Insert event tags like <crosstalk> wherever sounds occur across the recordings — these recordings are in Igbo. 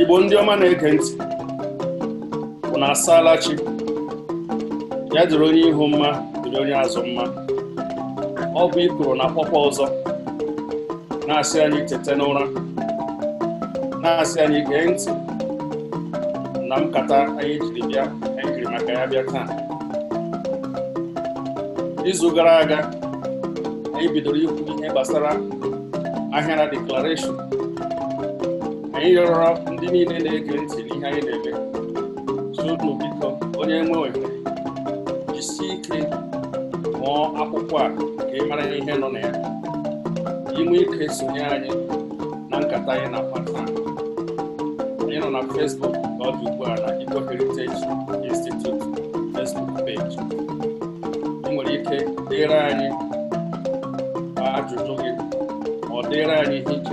igbo ndị ọma na-ege ntị na asaala chi ya dịrị onye ihu mma dịrị onye azụ mma ọ bụ ikoro na pọpa ọzọ na-asị anyị tete n'ụra na-asị anyị gee ntị na nkata anyị jiri bịa anyị jiri maka ya bịa taa izu gara aga anyị bidoro ikwu ihe gbasara ahịara deklarashọn anyị rịọrọ ndị niile na-ege ntị n'ihe anyị na-eme sunu biko onye nwe ohere jisi ike mụọ akwụkwọ a ka ị mara ihe nọ na ya inwe ike sonye anyị na nkata anyị na pata anyị nọ na Facebook ka ọ dị ugbu a na Igbo Heritage Institute Facebook page ị nwere ike dere anyị ajụjụ gị ma ọ dịre anyị ihe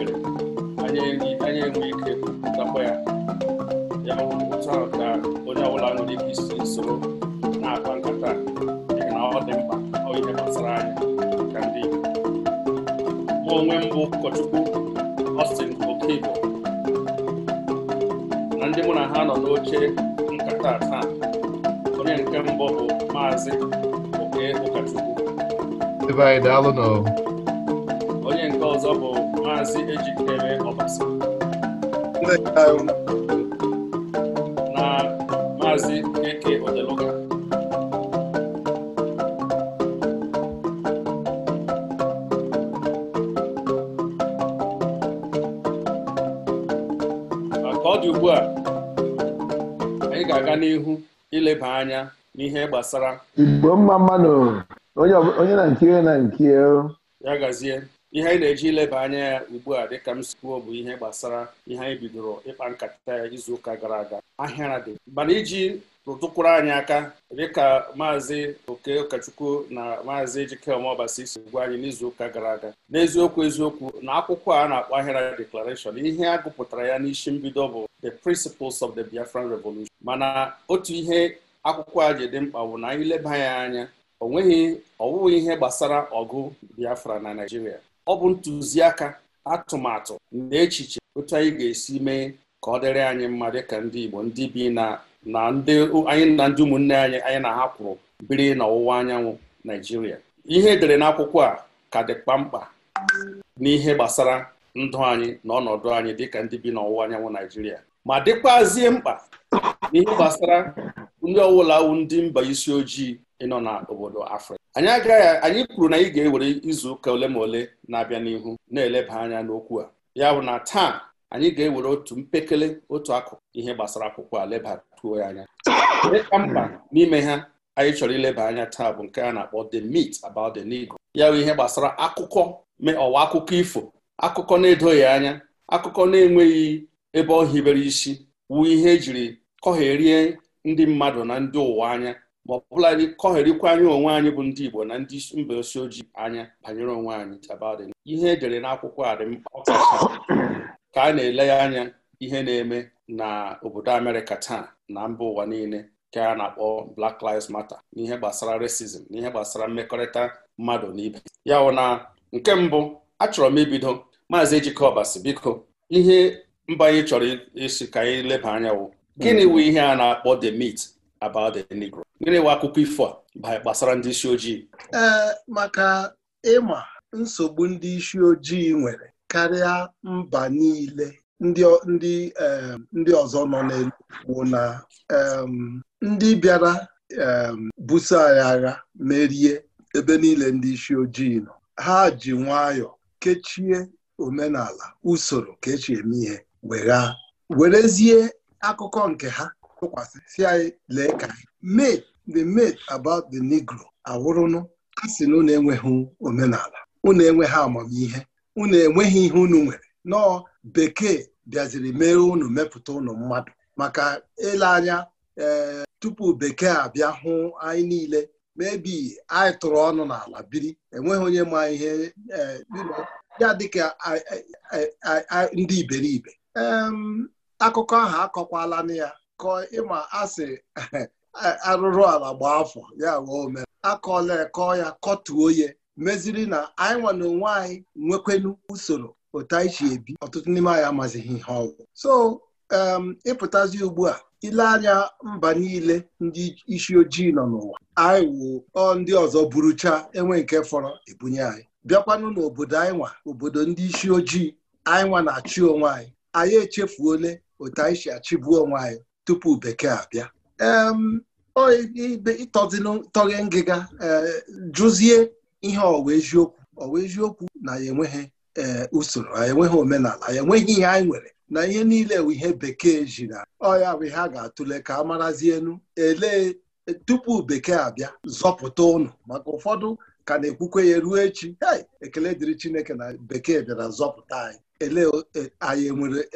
onye nke ọzọ bụ maazị ejikere ọbasa na maazị eke odeluga maka ọ dị ugbu a anyị ga-aga n'ihu ileba anya n'ihe gbasara Igbo mma mmanụ onye na nke na nke ya gazie ihe anyị na-eji ileba anya ya ugbu a dịka m sikwuo bụ ihe gbasara ihe anyị bidoro ịkpa nkata ya izu ụka gara aga ahịara dị mana iji rụtụkwuru anyị aka dịka maazị oke ụkọchukwu na maazị Ejikeme Ọbasi si gwa anyị n'izu ụka gara aga n'eziokwu eziokwu na akwụkwọ a na-akpọ ahịara Deklarashọn, ihe a gụpụtara ya n'isi mbido bụ the principles of the Biafran Revolution mana otu ihe akwụkwọ a ji dị mkpa bụ na anyị leba ya anya o nweghị ọwụghị ihe gbasara ọgụ Biafra na Naịjirịa ọ bụ ntụziaka atụmatụ na echiche otu anyị ga-esi mee ka ọ dịrị anyị mma dịka ndị Igbo ndị bi na ndị anyị na ndị ụmụnne anyị anyị na ha kwụrụ biri n'ọwụwa anyanwụ Naịjirịa ihe edere n'akwụkwọ a ka dịkpa mkpa n'ihe gbasara ndụ anyị na ọnọdụ anyị dịka ndị bi n'ọwụwa anyanwụ Naịjirịa ma dịkwazie mkpa n'ihe gbasara ndị ọwụla ndị mba isi ojii ịnọ na obodo afrịka anyị agaghị anyị kwuru na anyị ga-ewere izu ụka ole ma ole na-abịa n'ihu na-eleba anya n'okwu a ya bụ na taa anyị ga-ewere otu mpekele otu akụkụ ihe gbasara akwụkwọ a lebatuo ya anya ka mkpa n'ime ha anyị chọrọ ileba anya taa bụ nke a na-akpọ the meat about the Negro ya bụ ihe gbasara akụkọ ọwa akụkọ ifo akụkọ na-edoghị anya akụkọ na-enweghị ebe ọ hibere isi wu ihe ejiri kọgherie ndị mmadụ na ndị ụwa anya ma ọ bụla kọgherikwa anyị onwe anyị bụ ndị Igbo na ndị mba osi ojii anya banyere onwe anyị tabadị ihe edere n'akwụkwọ a dị mkpa ka a na-ele ya anya ihe na-eme na obodo Amerịka taa na mba ụwa niile ka a na-akpọ Black Lives Matter n'ihe gbasara racism ihe gbasara mmekọrịta mmadụ na ibe ya wụ na nke mbụ achọrọ m ibido maazị Ejike biko ihe mba anyị chọrọ isi ka anyị leba anya wụ gịnị hmm. wụ ihe a na-akpọ the meat about the Negro. Gịnị wa akụkọ ifo gbasara ndị isi ojii? maka ịma nsogbu ndị isi ojii nwere karịa mba niile ndị ọzọ nọ n'elu bụ na ndị bịara buso anyị agha merie ebe niile ndị isi ojii nọ ha ji nwayọọ kechie omenala usoro kechie eme ihe werezie akụkọ nke ha tụkwasị si anyị lee ka mate the mate about the negro awụrụnụ a sị na unu enweghị omenala unu enweghị amamihe unu enweghị ihe unu nwere nọọ bekee bịaziri mee unu mepụta ụnụ mmadụ maka ile anya ee eh, tupu bekee abịa hụ anyị niile mebi anyị tụrụ ọnụ n'ala biri enweghị onye ma ihe eh, ya dịka ndị iberibe akụkọ ahụ akọkwala na ya kọọ ịma asị <laughs> arụrụ ala gbaa afọ ya wee ome akọọla ekọ ya kọtuo ya meziri na anyị nwa na onwe anyị nwekwenu usoro otu anyị si ebi ọtụtụ n'ime anyị amazighị ihe ọgwụ so um, ịpụtazi ugbu a ile anya mba niile ndị isi ojii nọ n'ụwa anyị wụ ndị ọzọ burucha enwe nke fọrọ ebunye anyị bịakwanụ n'obodo anyị nwa obodo ndị isi ojii anyị nwa na-achị onwe anyị anyị echefuole otu anyị si achịbu onwe anyị tupu bekee abịa ịtọghe ngịga e, jụzie ihe ọwa eziokwu ọwa eziokwu na ya enweghị e, usoro anyị enweghị omenala anyị enweghị ihe anyị nwere na ihe niile bụ ihe bekee ji na ọya bụ ihe a ga-atụle ka a marazi elee e, tupu bekee abịa zọpụta ụnụ maka ụfọdụ ka na-ekwukwe ya ruo echi ekele dịrị Chineke na bekee bịara zọpụta anyị Elee, anyị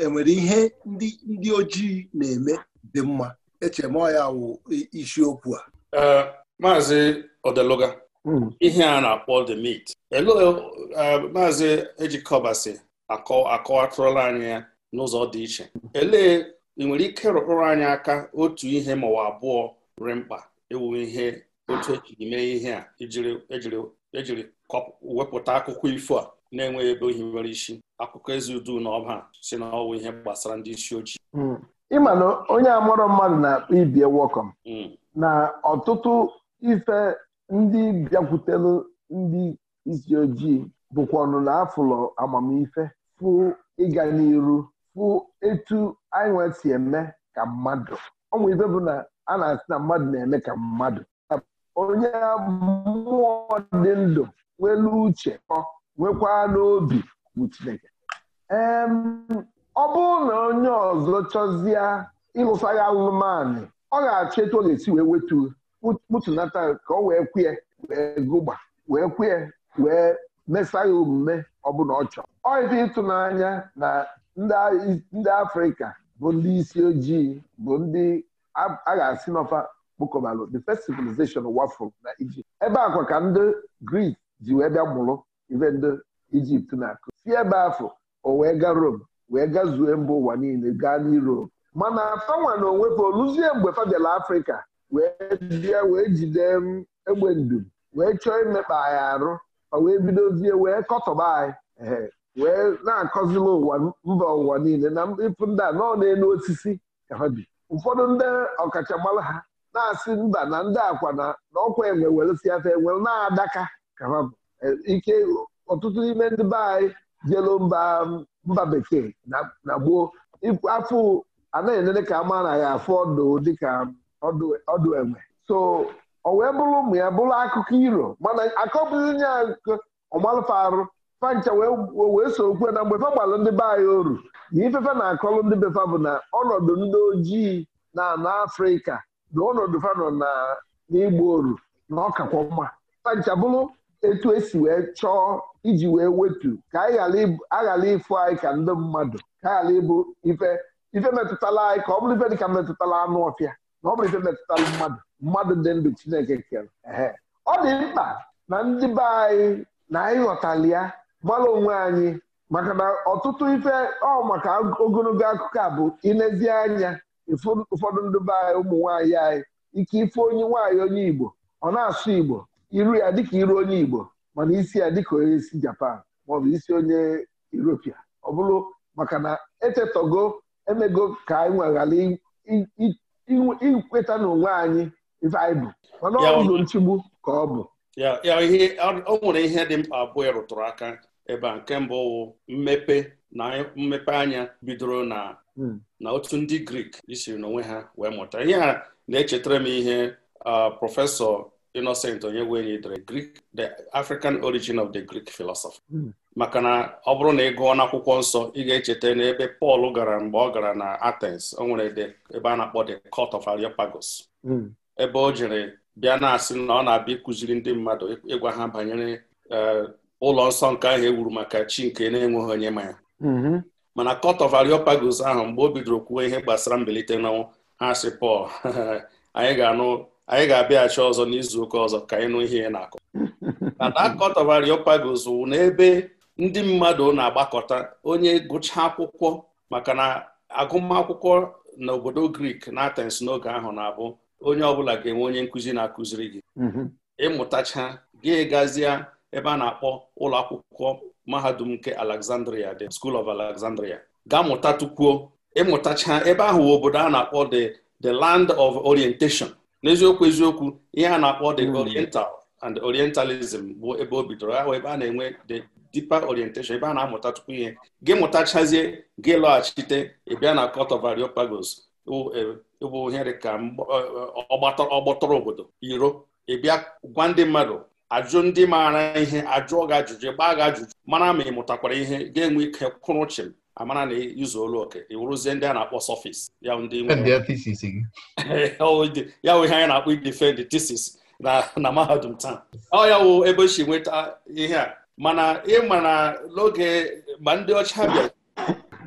enwere ihe ndị ojii na-eme dị mma eche m ya wụ isiokwu a maazị Odeluga hmm. ihe a na-akpọ the meat maazị ejikọbasi akọwatụrụla anyị ya n'ụzọ dị iche elee ị nwere ike rụkpụrụ anyị aka otu ihe ma maọbụ abụọ rị mkpa ewu ihe otu ejiri mee ihe a ejiri wepụta akụkọ ifo a na-enweghị ebe ohi nwere isi akụkọ ezi udu na ọba si na ọwụ ihe gbasara ndị isi ojii hmm. ịma na onye amụrụ mmadụ na-akpọ ibie wọkọm hmm. na ọtụtụ ife ndị bịakwutelu ndị isi ojii bụkwa ọnụ na afụlọ amamife fụ ịga n'iru fụ etu anyị nwee si eme ka mmadụ ọnwụ ife bụ na a na-asị na mmadụ na-eme ka mmadụ onye mmụọ dị ndụ nwelu uche ọ nwekwa n'obi bụ Chineke ọ bụrụ na onye ọzọ chọzie ịlụsagha anụmanụ ọ ga-achọ etu ọ ga-esi wee wetu kputunata ka ọ wee kwee wee gụgba wee kwee wee mesa ya omume ọbụla ọ chọrọ ọ dị ịtụnanya na ndị afrịka bụ ndị isi ojii bụ ndị a ga-asị n'ọfa kpokọbalụ the first civilization wafụ na Egypt. ebe akwa ka ndị Grik ji wee bịa mụrụ ibe ndị Ijipt na-akụ si ebe afọ o wee gaa Rome wee gazuo mba ụwa niile gaa n'Europe mana fanwa na onwe oluzie mgbe fa bịara Afrịka wee bịa wee jide mm, egbe ndu wee chọọ imekpa anyị arụ fa wee bidozie wee kọtọba anyị wee na-akọzila ụwa mba ụwa niile na ịpụ ndị a nọ enu osisi ka ha bi ụfọdụ ndị ọkachamara ha na-asị mba na ndị akwa na ọkwa enwe weresi afa enwe na-adaka ka ha bụ e, ike ọtụtụ n'ime ndị be anyị jelo mba mm, mba bekee na gboo afọ anaghị enene ka ama na ya afọ ọdụ dịka ọdụ enwe so ọ wee bụrụ ụmụ ya bụrụ akụkọ iro mana nye ya ọmalụfa arụ fancha wee so okwe na mgbe fa gbalụ ndị be anyị oru na ifefe na-akọlụ ndị befa bụ na ọnọdụ ndị ojii na ana afrịka na ọnọdụ fanọ na n'igbo oru na ọkakwa mma fancha bụrụ etu esi wee chọọ iji wee wetu ka anyị ghara ịfụ anyị ka ndị mmadụ ka anyị ghara ịbụ ife ife metụtala anyị ka ọ bụrụ ife dị ka metụtala anụ ọfịa na ọ bụrụ ife metụtala mmadụ mmadụ dị ndụ Chineke kere ọ dị mkpa na ndị be anyị na anyị ghọtali ya gbara onwe anyị maka na ọtụtụ ife ọ maka ogologo akụkọ a bụ ilezi anya ụfọdụ ndị be anyị ụmụ nwaanyị anyị ike ife onye nwaanyị onye Igbo ọ na-asụ Igbo iru ya dịka iru onye Igbo mana isi ya dịka onye isi Japan maọbụ isi onye Europia ọ bụrụ maka na echetogo emego ka anyị nweghara ikweta na onwe anyị ife mana ọ bụ nchigbu ka ọ bụ ya o nwere ihe dị mkpa abụọ ịrụtụrụ aka ebe a nke mbụ mmepe na mmepe anya bidoro na hmm. na otu ndị Grik isiri n'onwe ha wee mụta ihe a na-echetara m ihe ah, prọfesọ Innocent Onyegwenyi dere Greek the African origin of the Greek philosophy hmm. maka na ọ bụrụ na ị gụọ n'akwụkwọ nsọ ị ga-echeta n'ebe Pọl gara mgbe ọ gara na Athens o nwere ebe a na-akpọ the court of Areopagus hmm. ebe o jere bịa na-asị na ọ na-abịa ịkụziri ndị mmadụ ịgwa ha banyere e, ụlọ nsọ nke ahụ ewuru maka chi nke na-enweghị onye ma ya hmm. mana court of Areopagus ahụ mgbe o bidoro kwuo ihe gbasara mbilite n'ọnwụ ha sị Pọl <laughs> anyị ga-anụ anyị ga-abịaghachi ọzọ n'izu ụka ọzọ ka ịnụ nụ ihe ị na-akọ <laughs> mana Areopagus wụ n'ebe ndị mmadụ na-agbakọta onye gụcha akwụkwọ maka na agụmakwụkwọ n'obodo Grik na atens n'oge ahụ na-abụ onye ọbụla ga-enwe onye nkụzi na-akụziri gị mm-hmm. ịmụtacha gị gazie ebe a na-akpọ ụlọ akwụkwọ mahadum nke Alexandria the School of Alexandria gaa mụta tukwuo ịmụtacha ebe ahụ obodo a na-akpọ the the land of orientation n'eziokwu eziokwu ihe a na-akpọ the oriental and orientalism bụ ebe o bidoro ahụ ebe a na-enwe the deeper orientation ebe a na-amụta tupu ihe gị mụtachazie gị lọghachite ịbịa na court of Areopagus bụ e, ihe ka e, e, ọgbọtọrọ obodo iro ịbịa gwa ndị mmadụ ajụ ndị maara ihe ajụọ gị ajụjụ gbaa gị ajụjụ mara ma ị mụtakwara ihe ga-enwe ike kwụrụ amara na ịzụ e-, olu oke iwuruzie ndị a na-akpọ sọfis <laughs> ya wụ ihe anyị na-akpọ idefend thesis na mahadum taa ọ ya wụ ebe si nweta ihe a mana ịma na n'oge ma ndị ọcha bịara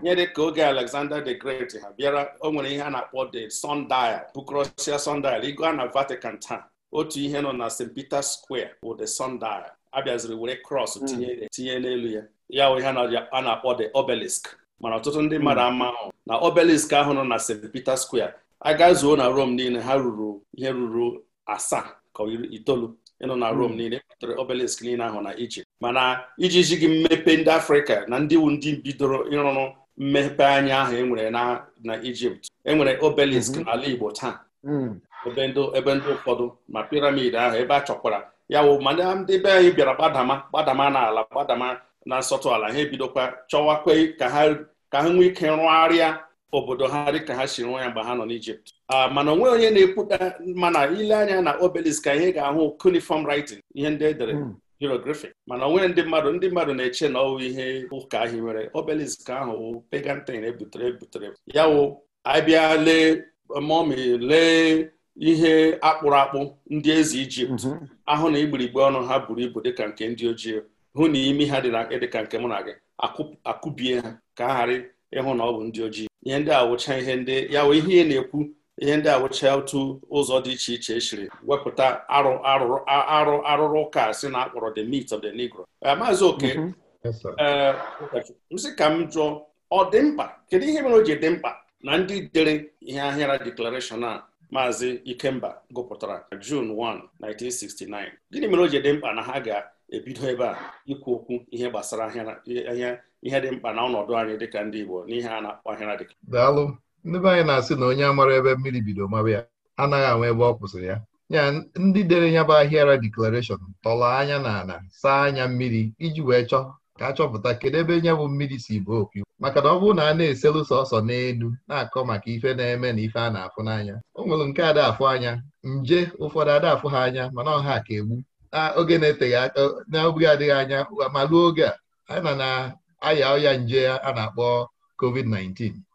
nyere ka oge Alexander the Great ha bịara o nwere ihe a na-akpọ the sundial Bucrasia sundial ịga na Vatican taa otu ihe nọ na St. Peter Square bụ the sundial abịaziri were cross hmm. tinye n'elu ya ya ihe a na-akpọ the obelisk mana ọtụtụ ndị mmadụ ama ahụ na obelisk ahụ nọ na St. Peter Square agazuo na Rome niile ha ruru ihe ruru asaa ka itoolu ịnọ na Rome hmm. niile ekpọtara obelisk niile ahụ na Ijipt mana ijiji gị mmepe ndị Afrịka na ndị wu ndị bidoro ịrụrụ mmepe anya ahụ enwere na Ijipt enwere obelisk hmm. n'ala Igbo taa hmm. ebe ndị ụfọdụ ma piramid ahụ ebe a chọkwara ya wụ ma ndị be anyị bịara gbadama gbadama n'ala gbadama na nsọtụ ala ha ebidokwa chọwakwa ka ha nwee ike rụgharịa obodo ha dị ka ha si rụọ ya mgbe ha nọ n'Ijipt mana onwe onye na-ekwuta mana ile anya na obelisk ka ihe ga-ahụ cuneiform writing ihe ndị edere hmm. hieroglyphic mana onwe ndị mmadụ ndị mmadụ na-eche na ọwụ ihe ụka ahụ nwere obelisk ahụ wụ ebutere ebutere ya wụ abịa lee lee ihe akpụrụ akpụ ndị eze Ijipt mhm. ahụ na igbirigbe ọnụ ha buru ibu dịka nke ndị ojii hụ na imi ha dị na ka nke mụ na gị akụbie ha ka a ghara ịhụ na ọ bụ ndị ojii ihe ndị awụcha ihe ndị ya ihe na-ekwu ihe ndị awụcha otu ụzọ dị iche iche esiri wepụta arụ arụ arụrụ ụka si na akpọrọ the meat of the negro eh, maazị oke mhm. eh, m ka m jụọ ọ dị mkpa kedu ihe mere o ji dị mkpa na ndị dere ihe ahịara deklarashọn a maazị ikemba gụpụtara June 1 1969 gịnị mere o ji dị mkpa na ha ga ebido ebe a ikwu okwu ihe gbasara ihe dị mkpa na ọnọdụ anyị dịka ndị Igbo n'ihe a na-akpọ ahịra dịka daalụ ndị be anyị na-asị na onye amara ebe mmiri bido mara ya anaghị anwa ebe ọ kwụsịrị ya ya ndị dere ya bụ ahịara deklarashọn tọrọ anya na ana saa anya mmiri iji wee chọọ ka a chọpụta kedu ebe nya bụ mmiri si bụ okwu maka na ọ bụrụ na a na-eselu sọsọ n'elu na-akọ maka ife na-eme na ife a na-afụ n'anya o nwere nke adafụ afụ anya nje ụfọdụ adafụ ha anya mana ọha ka egbu na ah, oge na-eteghị aka n'oge adịghị anya ma ruo oge a anyị na na-aya ọya nje a na-akpọ covid-19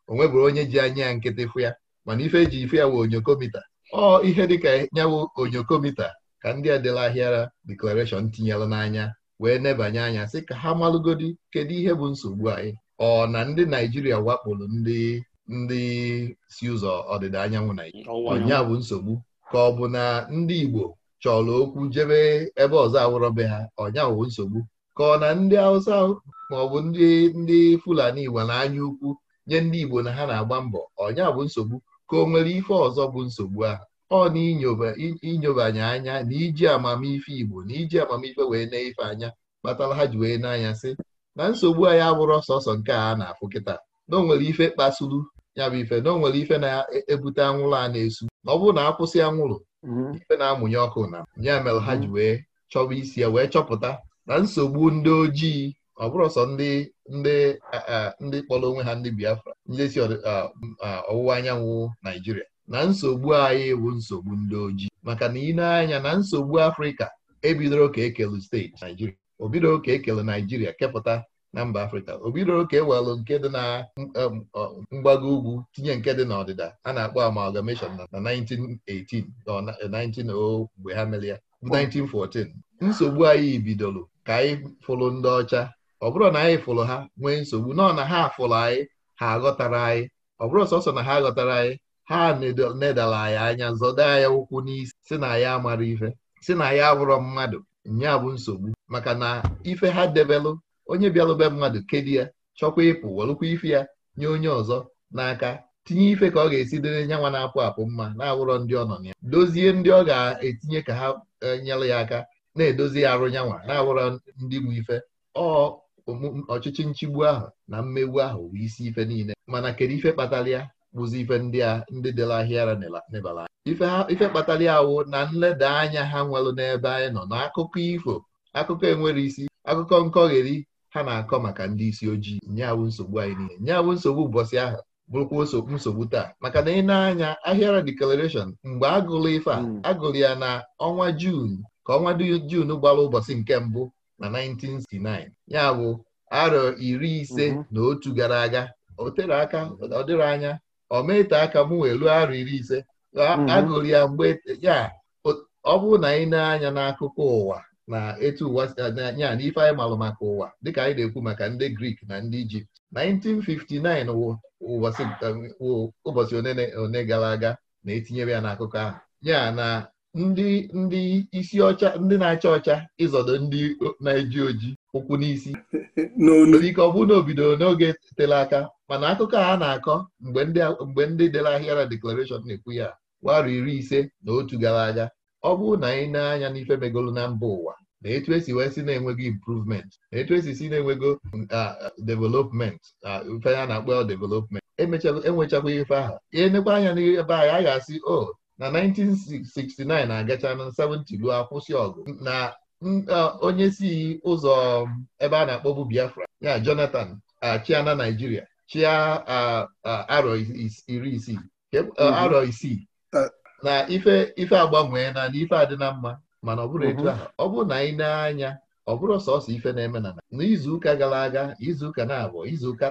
bụrụ onye ji anya ya nkịtị fụ ya mana ife eji ife ya wụ onyokomita ọ ihe dịka nyawo onyokomita ka ndị ahịara deklarashọn tinyela n'anya wee nebanye anya sị ka ha malụgodi kedu ihe bụ nsogbu anyị ọ na ndị naijiria wakporo ndị ndị si ụzọ ọdịda anyanwụ naijiria ọnya bụ nsogbu ka ọ bụ na ndị igbo chọrọ okwu jebe ebe ọzọ awụrọ be ha ọnyawo nsogbu ka ọ na ndị Hausa ma ọ bụ ndị ndị Fulani Igbo na-anya ukwu nye ndị Igbo na ha na-agba mbọ ọnya bụ nsogbu ka o nwere ife ọzọ bụ nsogbu ahụ ọ na inyobanye anya na iji amamife Igbo na iji amamife wee na ife anya kpatara ha ji wee n'anya sị na nsogbu anyị abụrụ sọsọ nke a na-afụ kịta na o nwere ife kpasuru ya bụ ife na o nwere ife na-ebute anwụrụ a na-esu ọ bụrụ na akwụsị anwụrụ Mhm. ife na-amụnye ọkụ na ya mere ha ji mhm. wee chọba isi ya wee chọpụta na nsogbu ndị ojii ọ bụrụ ndị ndị ndị kpọrọ onwe ha ndị Biafra ndị si ọwụwa anyanwụ Naijiria na nsogbu anyị bụ nsogbu ndị ojii maka na ị na-anya na nsogbu Afrịka ebidoro ka ekelu steeti Naijiria o bidoro ka ekele Naijiria kepụta na mba afrịka o bidoro welụ nke dị na um, mgbago ugwu tinye nke dị n'ọdịda a na-akpọ amalgamation na 1918 19 eh, mgbe ha mere ya 1914 nsogbu anyị bidoro ka anyị fụrụ ndị ọcha ọ bụrụ na anyị fụrụ ha nwee nsogbu nọ na ha fụrụ anyị ha aghọtara anyị ọ bụrụ sọsọ na ha ghọtara anyị ha nedala anyị anya zọda anyị ụkwụ n'isi si na ya amara ife si na ya abụrọ mmadụ nya bụ nsogbu maka na ife ha debelụ onye bịara be mmadụ kedi ya chọkwa ịpụ welụkwa ife ya nye onye ọzọ n'aka tinye ife ka ọ ga-esi dịrị nyanwa na-apụ apụ mma na-awụrọ ndị ọ nọ na ya dozie ndị ọ ga-etinye ka ha e, nyere ya aka na-edozi arụ nyanwa na-awụrọ ndị bụ ife ọ ọchịchị nchigbu ahụ na mmegbu ahụ bụ isi ife niile mana kedu ife kpatara ya bụzi ife ndị a ndị dịla ahịara n'ebala ife kpatara ya wụ na nleda anya ha nwelụ n'ebe anyị nọ n'akụkọ ifo akụkọ enwere isi akụkọ nkọgheri ha na-akọ maka ndị isi ojii nyawu nsogbu anyị niile nyawu nsogbu ụbọchị ahụ bụrụkwa nsogbu taa maka na ị na-anya ahịara declaration mgbe agụlụ ife a hmm. agụrụ ya na ọnwa Jun ka ọnwa Jun gbara ụbọchị nke mbụ na 1969 ya bụ arọ iri ise hmm. na otu gara aga o tere aka ọ dịrị anya ọ mete aka mụ wee arọ iri ise hmm. agụlụ ya mgbe ya ọ bụrụ na ị na-anya n'akụkọ ụwa na etu ụwa eh, anya na ife anyị malụ maka ụwa dịka anyị na-ekwu maka ndị Grik na ndị Ijipt 1959 ụbọchị um, one gara aga na-etinyere ya n'akụkọ ahụ ya na ndị ndị isi ọcha ndị na-acha ọcha ịzọdo ndị na-eji oji ụkwụ n'isi ike ọ bụrụ na n'oge tere aka mana akụkọ a na-akọ mgbe ndị dere ahịara deklarashọn na-ekwu ya warụ iri ise na otu gara aga ọ bụrụ na anyị na-anya n'ife megolu na mba ụwa na etu esi wee si na-enwego improvement na etu esi si na-enwego development ife ya na-akpọ development enwechakwa ife ahụ enekwa anya n'ebe anyị a ga-asị o oh, na 1969 na agacha na 70 luo akwụsị ọgụ na onye si ụzọ um, ebe a na-akpọbu Biafra ya Jonathan achịa na Naijiria chịa arọ iri isii mhm. arọ isii na ife ife agbanwee na ife adị mma mana ọ bụrụ etu mhm. a ọ bụrụ na anyị na-anya ọ bụrụ sọsọ ife na-eme na n'izuụka gara aga izuụka na-abụọ izuụka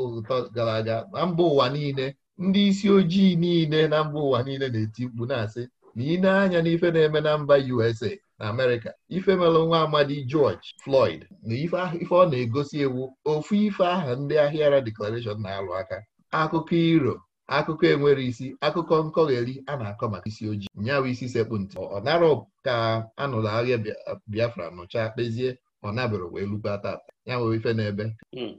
ụtọ gara aga na mba ụwa niile ndị isi ojii niile na mba ụwa niile na-eti mkpu na-asị na ị na-anya na-eme na mba USA na Amerika," ife mere nwa amadi George Floyd na ife ọ na-egosi ewu ofu ife aha ndị ahịara Declaration na-alụ aka akụkọ iro akụkọ enwere isi akụkọ nkọgheri a na-akọ maka isi ojii nyawa isi sekpụ ntị ọ narọ ka nụrụ ahịa Biafra nụcha kpezie ọ nabịara wee lukwa tata ya nwere ife n'ebe hmm.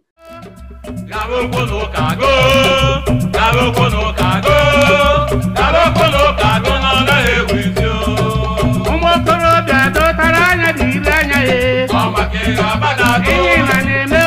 ụmụokorobịa dọtara anya anya ya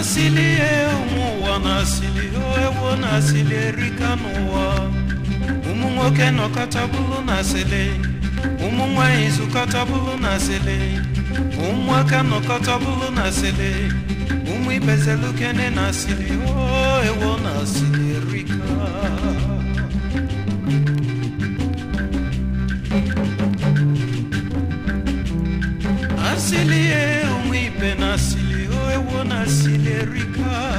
nasili ewu ụwa nasili ewu nasili erika n'ụwa ụmụ nwoke nọkọtabụlụ nasili ụmụ nwanyị zụkọtabụlụ nasili ụmụaka nọkọtabụlụ nasili ụmụ ibezelukene nasili ewu nasili erika asili ewu ibe nasili wewe wona silerika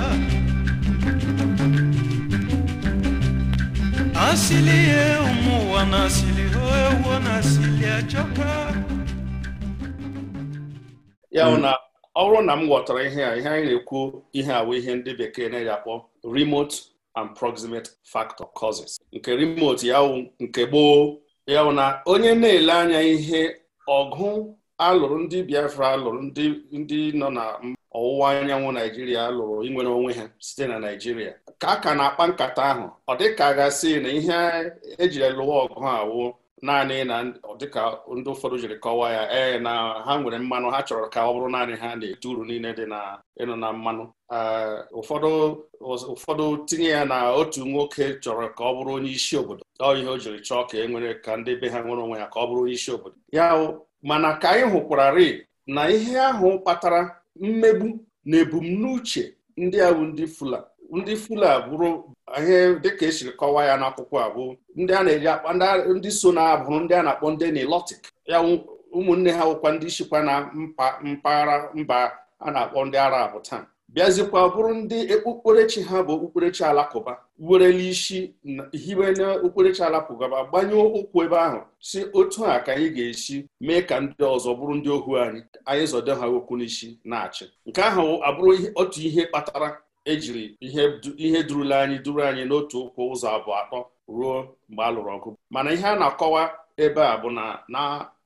asili ye umuwana asili wewe wona achoka ya ona ọ na m ghọtara ihe a ihe anyị na-ekwu ihe a ihe ndị bekee na-eji akpọ remote and proximate factor causes nke remote ya nke gboo ya na onye na-ele anya ihe ọgụ alụrụ ndị Biafra alụrụ ndị nọ na ọwụwa anyanwụ naijiria lụrụ inwere onwe ha site na naijiria ka a ka na-akpa nkata ahụ ọ dịka gasị na ihe ejiri lụwa ọgụ awụ naanị na dịka ndị ụfọdụ jiri kọwaa ya ee na ha nwere mmanụ ha chọrọ ka ọ bụrụ naanị ha na eti uru niile dị na ịnụ na mmanụ ụfọdụ ụfọdụ tinye ya na otu nwoke chọrọ ka ọ bụrụ onye isi obodo ọ ihe o jiri chọọ ka e nwere ka ndị be ha nwere onwe ya ka ọ bụrụ onye isi obodo ya mana ka anyị hụkwararị na ihe ahụ kpatara mmegbu na ebumnuche ndị awụ ndị fula ndị fula bụrụ ihe dịka esiri kọwaa ya n'akwụkwọ abụ ndị a na-eji ndị so na-abụrụ ndị a na-akpọ ndị nilotik ya ụmụnne ha wụkwa ndị chịkwa na mpaghara mba a na-akpọ ndị arab taa bịazikwa bụrụ ndị okpukperechi e, ha bụ okpukperechi alakụba werele isi hiwe n'okpukperechi alapụgaba gbanye ụkwụ ebe ahụ si otu a ka anyị ga-esi mee ka ndị ọzọ bụrụ ndị ohu anyị anyị zọde ha okwu n'isi na-achị nke ahụ abụrụ otu ihe kpatara ejiri ihe durula anyị duru anyị n'otu ụkwụ ụzọ abụọ atọ ruo mgbe a lụrụ ọgụ mana ihe a na-akọwa ebe a bụ na na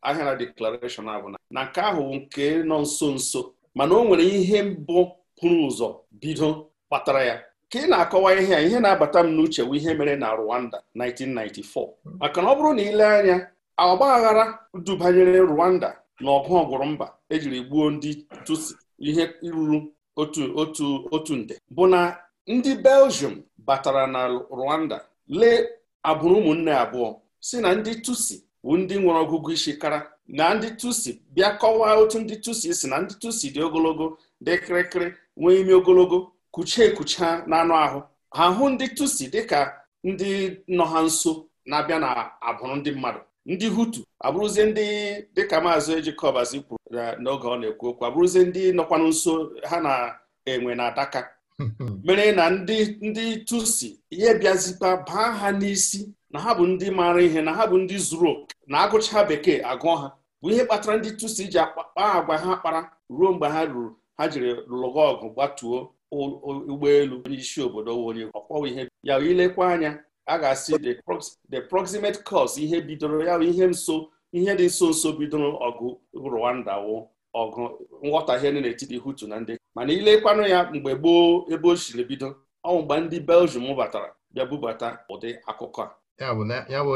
ahịara deklarashọn bụ na na nke ahụ nke nọ nso nso mana o nwere ihe mbụ pụrụ ụzọ bido kpatara ya ka ị na-akọwa ihe a ihe na-abata m n'uche bụ ihe mere na Rwanda 1994 maka na ọ bụrụ na ile anya ọgbaghara dubanyere Rwanda na ọgụ ọgwụrụ mba ejiri gbuo ndị tusi ihe ruru otu otu otu nde bụ na ndị Belgium batara na Rwanda lee agbụrụ ụmụnne abụọ si na ndị tusi bụ ndị nwere ọgụgụ isi kara na ndị tusi bịa kọwaa otu ndị tusi si na ndị tusi dị ogologo dị kịrịkịrị nwee ime ogologo kuchie ekucha n'anụ ahụ ha hụ ndị tusi dịka ndị nọ ha nso na-abịa na abụrụ ndị mmadụ ndị hutu abụrụzie ndị dịka maazị ejikọbazi kwuru n'oge ọ na-ekwu okwu abụrụzie ndị nọkwanụ nso ha na-enwe na adaka <laughs> mere na ndị ndị tusi ihe bịazikwa baa ha n'isi na ha bụ ndị maara ihe na ha bụ ndị zuru oke na agụcha bekee agụọ ha bụ ihe kpatara ndị tusi ji akpa agwa ha kpara ruo mgbe ha ruru ha jiri lụọ ọgụ gbatuo ụgbọelu onye isi obodo onye ọkwọwa ihe ya ilekwa anya a ga-asị the proximate cause ihe bidoro ya ihe nso ihe dị nso nso bidoro ọgụ Rwanda wụ ọgụ nghọtahie dị n'etiti Hutu na ndị mana ilekwanụ ya mgbe gboo ebe o siri bido ọnwụ mgbe ndị Belgium batara bịa bubata ụdị akụkọ a ya bụ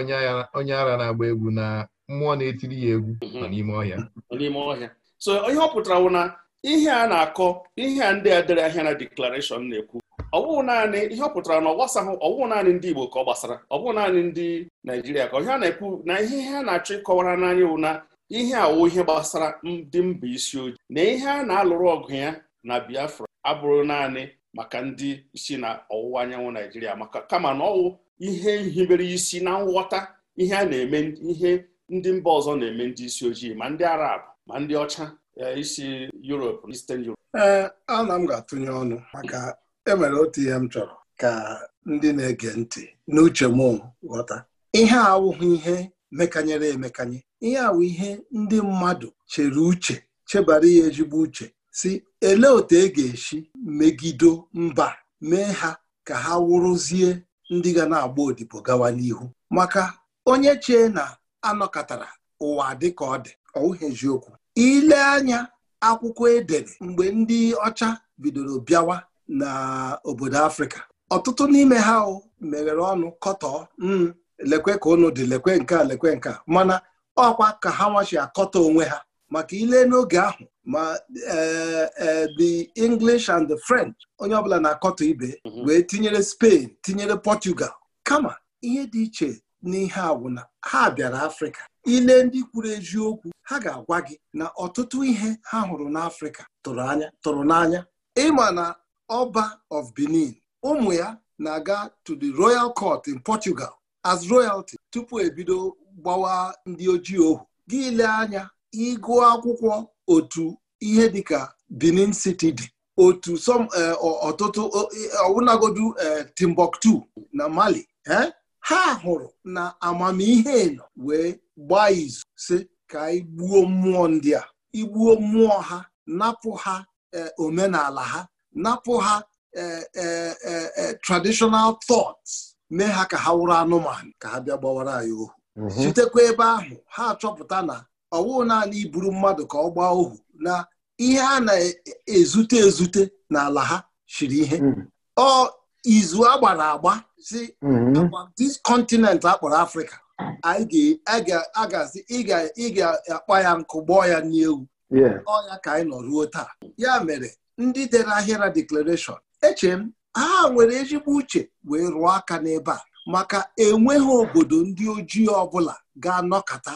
onye ara na-agba egwu na mmụọ na-etiri ya egwu mhm. n'ime ọhịa. n'ime ọhịa so ihe ọ pụtara wụ na ihe a na-akọ ihe a ndị a ahịa na deklarashọn na-ekwu ọwụ naanị ihe ọ pụtara na ọ gbasaghị naanị ndị Igbo ka ọ gbasara ọbụụ naanị ndị Naijiria ka ihe a na-ekwu na ihe ihe a na-achọ ịkọwara n'anya wụ na ihe awụ ihe gbasara ndị mba isi ojii na ihe a na-alụrụ ọgụ ya na Biafra abụrụ naanị maka ndị si na ọwụwa anyanwụ Naijiria maka kama na ọwụ ihe nhibere isi na nghọta ihe a na-eme ihe ndị mba ọzọ na-eme ndị isi ojii ma ndị Arab ma ndị ọcha isi Europe Eastern Europe. ee ana m ga-atụnye ọnụ maka enwere otu ihe m chọrọ ka ndị na-ege ntị n'uche m ghọta ihe awụghị ihe mekanyere emekanye ihe awụ ihe ndị mmadụ chere uche chebara ya ezigbo uche si elee otu e ga-esi megido mba mee ha ka ha wụrụzie ndị ga na-agba odibo gawa n'ihu maka onye chee na anọkọtara ụwa dị ka ọ dị ọwụghị eziokwu ile anya akwụkwọ edere mgbe ndị ọcha bidoro bịawa na obodo afrịka ọtụtụ n'ime ha meghere ọnụ kọtọọ hmm, lekwe ka ụnụ dị lekwe nke a lekwe nke a mana ọkwa ka ha nwachi akọta onwe ha maka ile n'oge ahụ ma eh, eh, the English and the French onye ọbụla na-akọtọ ibe mhm. wee tinyere Spain tinyere Portugal kama ihe dị iche n'ihe agwụna ha bịara afrịka ile ndị kwuru eziokwu ha ga-agwa gị na ọtụtụ ihe ha hụrụ n'afrịka tụrụ n'anya ịma na ọba of benin ụmụ ya na-aga to the royal court in portugal as royalty tupu ebido gbawa ndị ojii ohu gị anya ịgụ akwụkwọ otu ihe dịka benin city dị otu eh, ọtụtụ e, ọwụnagodu eh, timbuktu na mali eh? ha hụrụ na amamihe nọ wee gbaa izu si ka igbuo mmụọ ndị a igbuo mmụọ ha napụ ha e, omenala ha napụ ha e, e, traditional thoughts mee ha ka ha wụrụ anụmanụ ka ha bịa gbawara anyị ohu mhm. sitekwa ebe ahụ ha achọpụta na ọwụụ naanị iburu mmadụ ka ọ gbaa ohu na ihe a na-ezute ezute n'ala ha shiri ihe mhm. ọ izu agbara agba si mhm. this continent a kpọrọ Afrịka a ga ị ga-akpa ya nkụ gbọọ ya n'ewu ọya ka anyị nọ ruo taa ya mere ndị dere ahịra deklarashọn eche m ha nwere ezigbo uche wee rụọ aka n'ebe a maka enweghị obodo ndị ojii ọbụla ga anọkata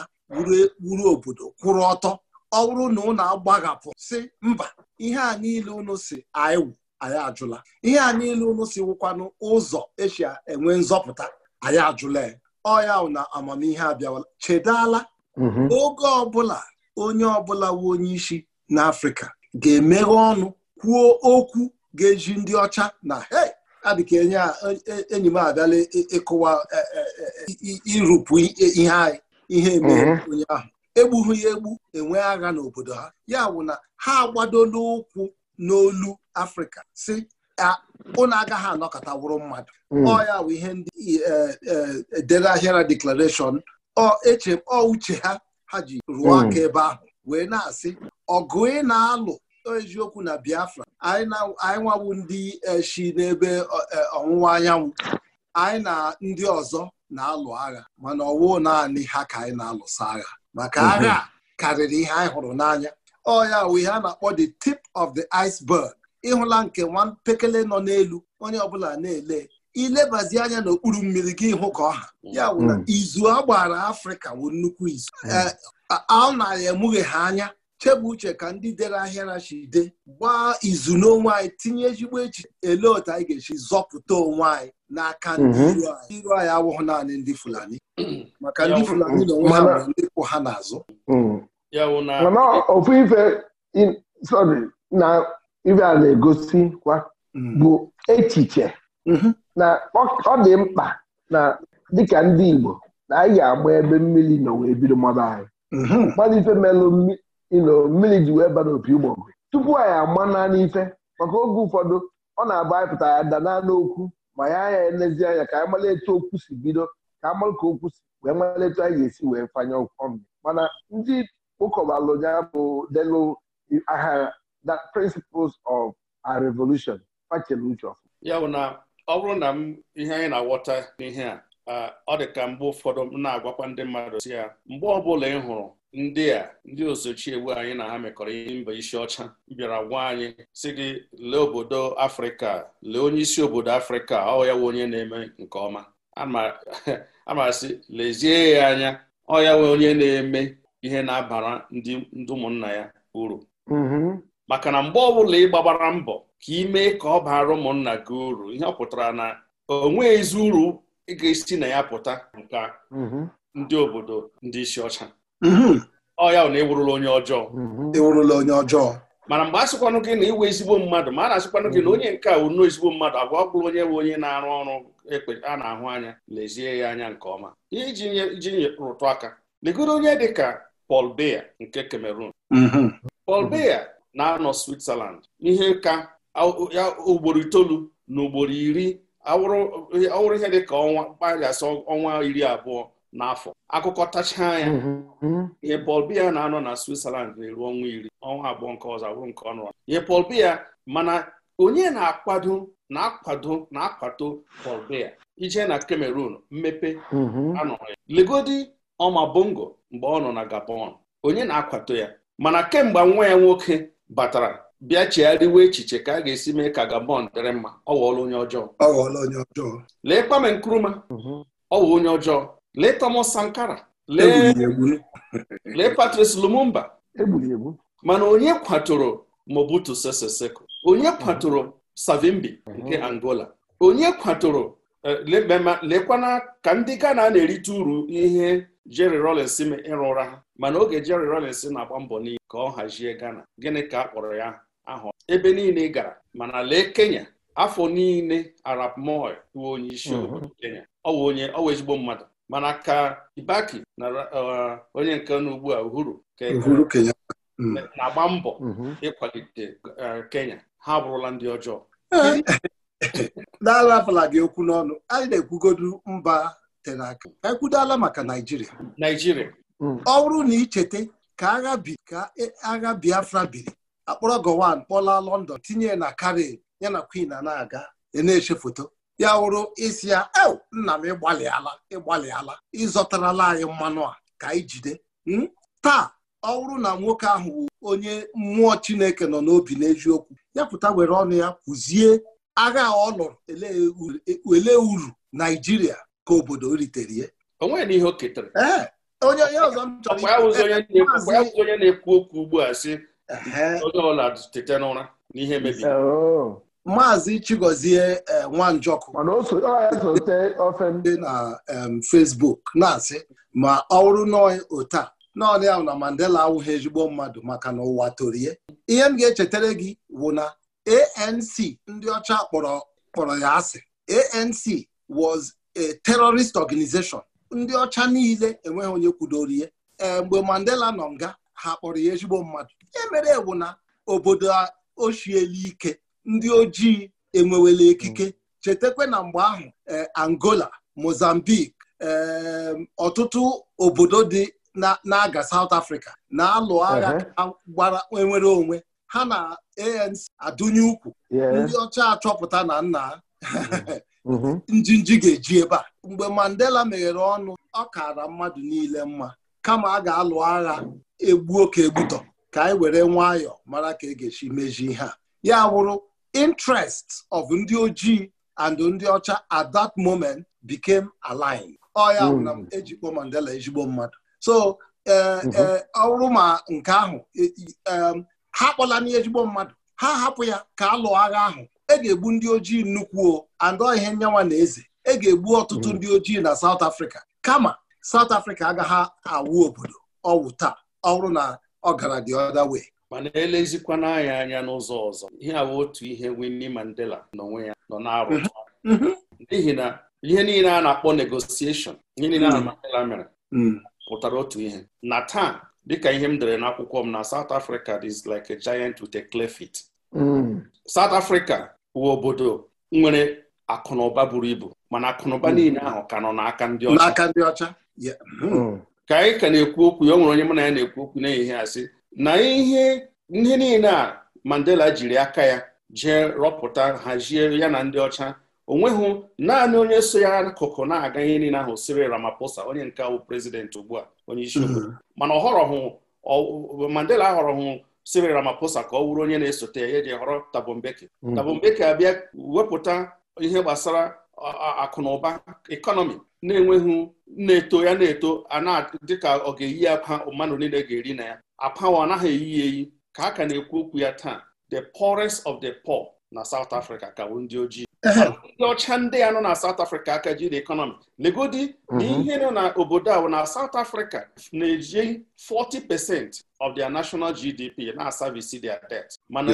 wuru obodo kwụrụ ọtọ ọ bụrụ na ụnụ agbaghapụ si mba ihe a niile ụnụ si anyị anyị ajụla ihe a niile ụnụ si wụkwanụ ụzọ esi enwe nzọpụta anyị ajụla ya ọya na amamihe abịawala chedala mhm. oge ọbụla onye ọbụla wu onye isi n'afrịka ga-emeghe ọnụ kwuo okwu ga-eji ndị ọcha na hei adịka enye e, e, enyi m abịala ịkụwa e, irụpụ ihe anyị ihe emeghe mhm. onye ahụ egbughị ya egbu enwe agha n'obodo ha ya bụ na ha agbadola ụkwụ n'olu afrịka si unu agaghị anọkọta wụrụ mmadụ hmm. ọ ya bụ ihe ndị eh, eh, eh, dere ahịara deklarashọn ọ eche ọ uche ha ha ji rụọ hmm. aka ebe ahụ wee na-asị ọgụ ị na-alụ eziokwu na Biafra anyị nwawu ndị shi n'ebe ọwụwa anyanwụ anyị na ndị ọzọ na-alụ agha mana ọwụ naanị ha ka anyị na-alụsa agha maka hmm. agha karịrị ihe anyị hụrụ n'anya ọ ya wee ha na-akpọ the tip of the iceberg ịhụla nke nwa mpekele nọ n'elu onye ọbụla na-ele ilebazi anya n'okpuru mmiri gị hụ ka ọha ya bụ na mm. izu a gbara afrịka bụ nnukwu izu mm. eh, a narị emughe ha anya chebụ uche ka ndị dere ahịa chide gbaa izu n'onwe anyị tinye ezigbo echi ele otu anyị ga-esi zọpụta onwe anyị n'aka ndị mhm. iro anyị anyị awụghị naanị ndị fulani maka ndị fulani mm. na onwe ha ndị kwụ ha n'azụ ibe a na-egosikwa mm. bụ echiche mm-hmm. na ọ dị mkpa na dịka ndị Igbo na anyị ga-agba ebe mmiri nọ wee bido mmadụ anyị mm-hmm. mmadụ ife melụ mmiri ji wee baa n'opi ụgbọgụ tupu anyị agba naanị ife maka oge ụfọdụ ọ na-agba anyị pụta ya da naanị okwu ma ya anya elezi anya ka anyị etu okwu si bido ka a ka okwu si wee mara etu anyị ga-esi wee fanye ọnụ mana ndị ụkọbalụ ya bụ delu agha that principles of our revolution ya bụ na ọ bụrụ na m ihe anyị na awọta n'ihe a uh, ọ dị ka mgbe ụfọdụ m na-agwakwa ndị mmadụ si ya mgbe ọbụla ị hụrụ ndị a ndị ozochiewu anyị na ha mekọrọ ihe mba isi ọcha bịara gwa anyị si gị lee obodo afrịka lee onye isi obodo afrịka ọ ya nwe onye na-eme nke ọma amasị <laughs> lezie ya anya ọ ya nwe onye na-eme ihe na-abara ndị ụmụnna ya uru mm-hmm. maka na mgbe ọbụla ị gbagbara mbọ ka ị mee ka ọ baara ụmụnna gị uru ihe ọ pụtara na onwe ezi uru ị ga-esi na ya pụta nka mhm. ndị obodo ndị isi ọcha mhm. ọya ya na ewurula onye ọjọọ mhm. ịwụrụla onye ọjọọ mana mgbe a sịkwanụ gị na iwe ezigbo mmadụ ma a na-asịkwanụ gị na onye nke a unu ezigbo mmadụ agwa ọ onye bụ onye na-arụ ọrụ ekpe a na-ahụ anya lezie ya anya nke ọma iji rụtụ aka legoro onye dị ka Paul Biya nke Cameroon pal Biya na-anọ Switzerland ihe ka ya ugboro itoolu na ugboro iri awụrụ ihe dị ka ọnwa kpaghasị ọnwa iri abụọ n'afọ akụkọtacha anya mm-hmm. ihe Paul bia na-anọ na Switzerland na-eru ọnwa iri ọnwa abụọ nke ọzọ abụrụ nke ọnụ ihe Paul Biya mana onye na-akwado na-akwado na-akwato Paul Biya ije na Cameroon mmepe mm-hmm. anọghị ya legodi ọma bongo mgbe ọ nọ na Gabon onye na-akwato ya mana kemgbe nwa ya nwoke batara bịa chigharịwa echiche ka a ga-esi mee ka Gabon dịrị mma ọ onye ọjọọ ọ onye ọjọọ lee Kwame Nkrumah mhm. ọ onye ọjọọ lee Thomas Sankara lee <laughs> Patrice Lumumba mana onye kwatoro Mobutu Sese Seko onye mhm. kwatoro Savimbi mhm. nke Angola onye kwatoro eh, lekwana ka ndị Ghana na-erite uru ihe Jerry Rawlings ịrụ ụra ha mana oge Jerry rollins na-agba mbọ n'iyi ka ọ hazie Ghana gịnị ka a kpọrọ ya ahụ ebe niile gara mana lee Kenya afọ niile Arap Moi bụ onye isi obodo mhm. Kenya ọ onye ọwa ezigbo mmadụ mana ka Kibaki na uh, onye nke na ugbu a Uhuru e mm. na-agba mbọ mhm. ịkwalite uh, Kenya ha abụrụla ndị ọjọọ na-arapụla eh, <laughs> gị okwu n'ọnụ anyị na-ekwugodu mba tere aka ekwudala maka naijiria mm. ọ bụrụ na icheta ka agha bi ka e, agha biafra biri akpọrọ gowan kpọla london tinye na kari ya na queen na-aga e na-eche foto ya wụrụ isi ya e nna m ịgbalịala ịgbalịala ịzọtarala anyị mmanụ a ka anyị jide hmm? taa ọ na nwoke ahụ bụ onye mmụọ chineke nọ n'obi n'eziokwu ya pụta were ọnụ ya kwuzie agha ọ lụrụ ele uru naijiria ka obodo ritere ihe onwe ihe o ketara onye onye ọzọ m chọrọ onye na-ekwu okwu ugbu a sị onye ọla tete n'ụra n'ihe mebiri maazị chigozie e, nwanjọkụ dị na Fesbuk, na-asị ma ọ bụrụ nọọ otu a naanị na Mandela awụghị ezigbo mmadụ maka na ụwa torie ihe m ga-echetara gị bụ na ANC ndị ọcha kpọrọ kpọrọ ya asị ANC was terrorist organization ndị ọcha niile enweghị onye kwudoro eh, mgbe mandela nọ nga ha kpọrọ ya ezigbo mmadụ ihe mere ewu na obodo ochiela ike ndị ojii enwewela ekike chetakwa na mgbe ahụ eh, angola mozambique eh, ọtụtụ obodo dị na-aga South Africa na-alụ agha uh-huh. gbara enwere onwe ha na ANC adụnye ukwu ndị ọcha achọpụta na nna <laughs> Mhm. njinji ga-eji ebe a mgbe Mandela meghere ọnụ ọ kara mmadụ niile mma kama a ga-alụ agha egbuo ka egbutọ ka anyị were nwayọ mara ka e ga-esi mezie ihe ya wụrụ interest of ndị ojii and ndị ọcha at that moment became aligned ọ ya na mm. ejikpo Mandela ezigbo mmadụ so e, e, mhm. ọ ma nke ahụ e, ha mmadụ ha hapụ ya ka alụ agha ahụ e ga-egbu ndị ojii nnukwu andọ ihe nyanwa na eze e ga-egbu ọtụtụ mm. ndị ojii na South Afrika, kama South Afrika agaghị awụ obodo ọwụ taa ọrụ na ọ gara dị other mana elezikwana anya anya n'ụzọ ọzọ ihe awụ otu ihe Winnie Mandela n'onwe ya nọ na-arụ mhm. mhm. n'ihi na ihe niile a na-akpọ negosieshon ihe niile a mm. Mandela mere mm. pụtara otu ihe na taa dịka ihe m dere n'akwụkwọ m na South Africa is like a giant with a clay fit. South Africa wụ obodo nwere akụnụba buru ibu mana akụnụba hmm. niile ahụ ka nọ n'aka ndị ọcha n'aka ndị ọcha hmm. Hmm. ka anyị ka na-ekwu okwu ya o nwere onye mụ na ya na-ekwu okwu n'ehihie asị na ihe ndị niile a Mandela jiri aka ya jee rọpụta hazie ya na ndị ọcha onweghị naanị onye so ya akụkụ na-aga ihe niile ahụ Cyril Ramaphosa onye nke awụ prezidenti ugbu a onye isi obodo mana ọ Mandela ahọrọhụ Cyril Ramaphosa ka ọ wụrụ onye na-esote ya eji họrọ Thabo mm. Mbeki abịa wepụta ihe gbasara akụnụba ekọnọmi na-enweghị na-eto ya na-eto ana dịka ọ ga-eyi akwa mmadụ niile ga-eri na ya apawa anaghị eyi ya eyi ka a ka na-ekwu okwu ya taa the poorest of the poor na South Africa ka bụ ndị ojii ndị ọcha ndị a nọ na South Africa aka jiri ekọnọmi legodi na mhm. ihe nọ na obodo ahụ na South Africa na-eji 40% of their national GDP na-asavisi their debt mana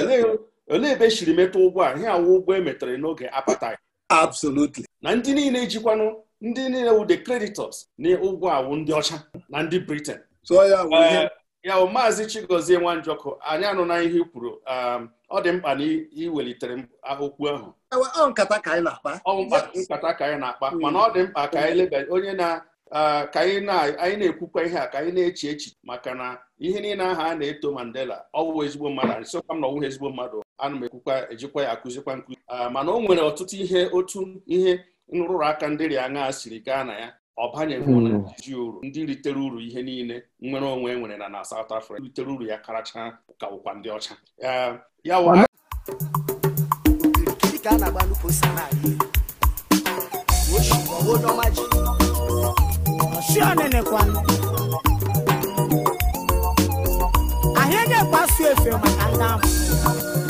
olee ebe eshiri metụ ụgwọ a ihe awụ ụgwọ e n'oge ya. absolutely na ndị niile jikwanụ ndị niile wụ the creditors na ụgwọ awụ ndị ọcha na ndị Britain eh, ya bụ maazị Chigozie Nwanjọkụ anyị anụna ihe i kwuru um, ọ dị mkpa na iwelitere okwu ahụ ọ nkata ka anyị na-akpa ka anyị na-akpa hmm. mana ọ dị mkpa ka anyị leba onye na ka anyị na-ekwukwa ihe a ka anyị na-eche echiche maka na ihe niile aha a na-eto Mandela ọwụwa ezigbo mmadụ sịkwa m na ọwụghị ezigbo mmadụ ana m ekwukwa ejikwa ya akụzikwa nkụzi mana o nwere ọtụtụ ihe otu ihe nrụrụ aka ndị rịa aṅa siri gaa na ya ọ banyeghị hmm. iji uru ndị ritere uru ihe niile nnwere onwe e nwere na na South Africa ritere uru ya karacha ka ụkwa ndị ọcha ya ahịa ga-ekpasu efe maka ndị ahụ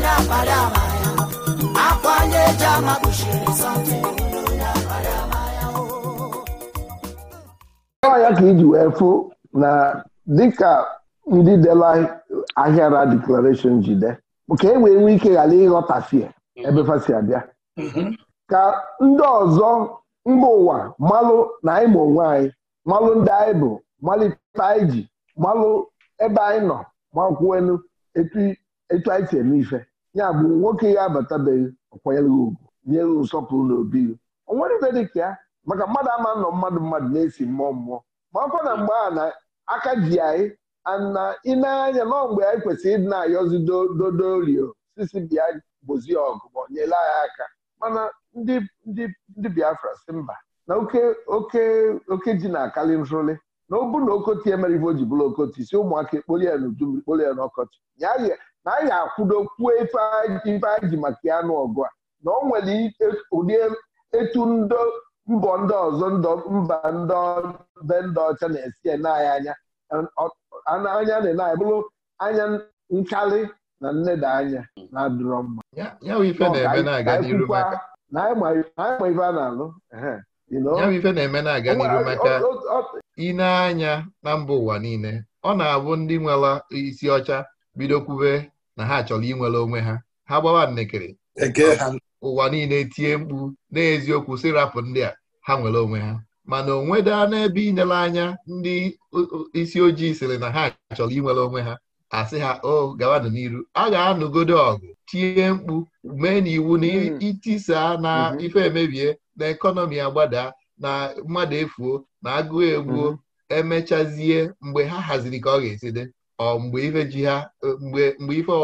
na abalị ama ya akwa anya eji ama kpuchiri oh. ya ka iji wee fụ na dịka ndị dela ahịara deklarashọn jide ka e wee nwee ike ghara ịghọtafie ebe fasi abịa ka ndị ọzọ mba ụwa malụ na anyị ma onwe anyị malụ ndị anyị bụ malite anyị ji malụ ebe anyị nọ makwuenu etu anyị si eme ife ya bụ nwoke ya abatabeghị ọkwanyere ugwu nye nsọpụrụ na obi o nwere ibe dị ka ya maka mmadụ ama nọ mmadụ mmadụ na-esi mmụọ mmụọ ma ọkwa na mgbe a na aka ji anyị ana ịneanya nọ mgbe anyị kwesịrị ịdị na-ayọzi dodorio sisi bịa gbozie ọgụ ma nyere anyị aka mana ndị Biafra si mba na oke ji na-akali nrụli na ọ bụ na okoti emere ivo o ji bụrụ okoti si ụmụaka ekpoli ya n'udu kpoli ya n'ọkọchị na anyị akwụdokwuo ife anyị ji maka ya n'ọgụ a na ọ nwere ụdị etu ndọ mbọ ndị ọzọ ndọ mba ndị be ndị ọcha na-esi anyị anya anya na anyị bụrụ anya nkalị na nneda anya na-adịrọ mma na anyị ma ife a na-alụ ya bụ ife na-eme na-aga n'iru maka ine anya na mba ụwa niile ọ na-abụ ndị nwere isi ọcha bido kwube na ha chọrọ inwere onwe ha ha gbawa nnekere ụwa niile tie mkpu n'eziokwu si rapụ ndị a ha nwere onwe ha mana onwe daa n'ebe inyere anya ndị isi ojii sịrị na ha chọrọ inwere onwe ha asị ha o gawanụ n'iru a ga-anụgodo ọgụ tie mkpu mee n'iwu na itisaa hmm. na hmm. ife emebie na ekọnọmi agbadaa na mmadụ efuo na agụụ egbuo hmm. emechazie mgbe ha haziri ka ọ ga-esi dị ọ mgbe ife ji ha e, mgbe ife ọ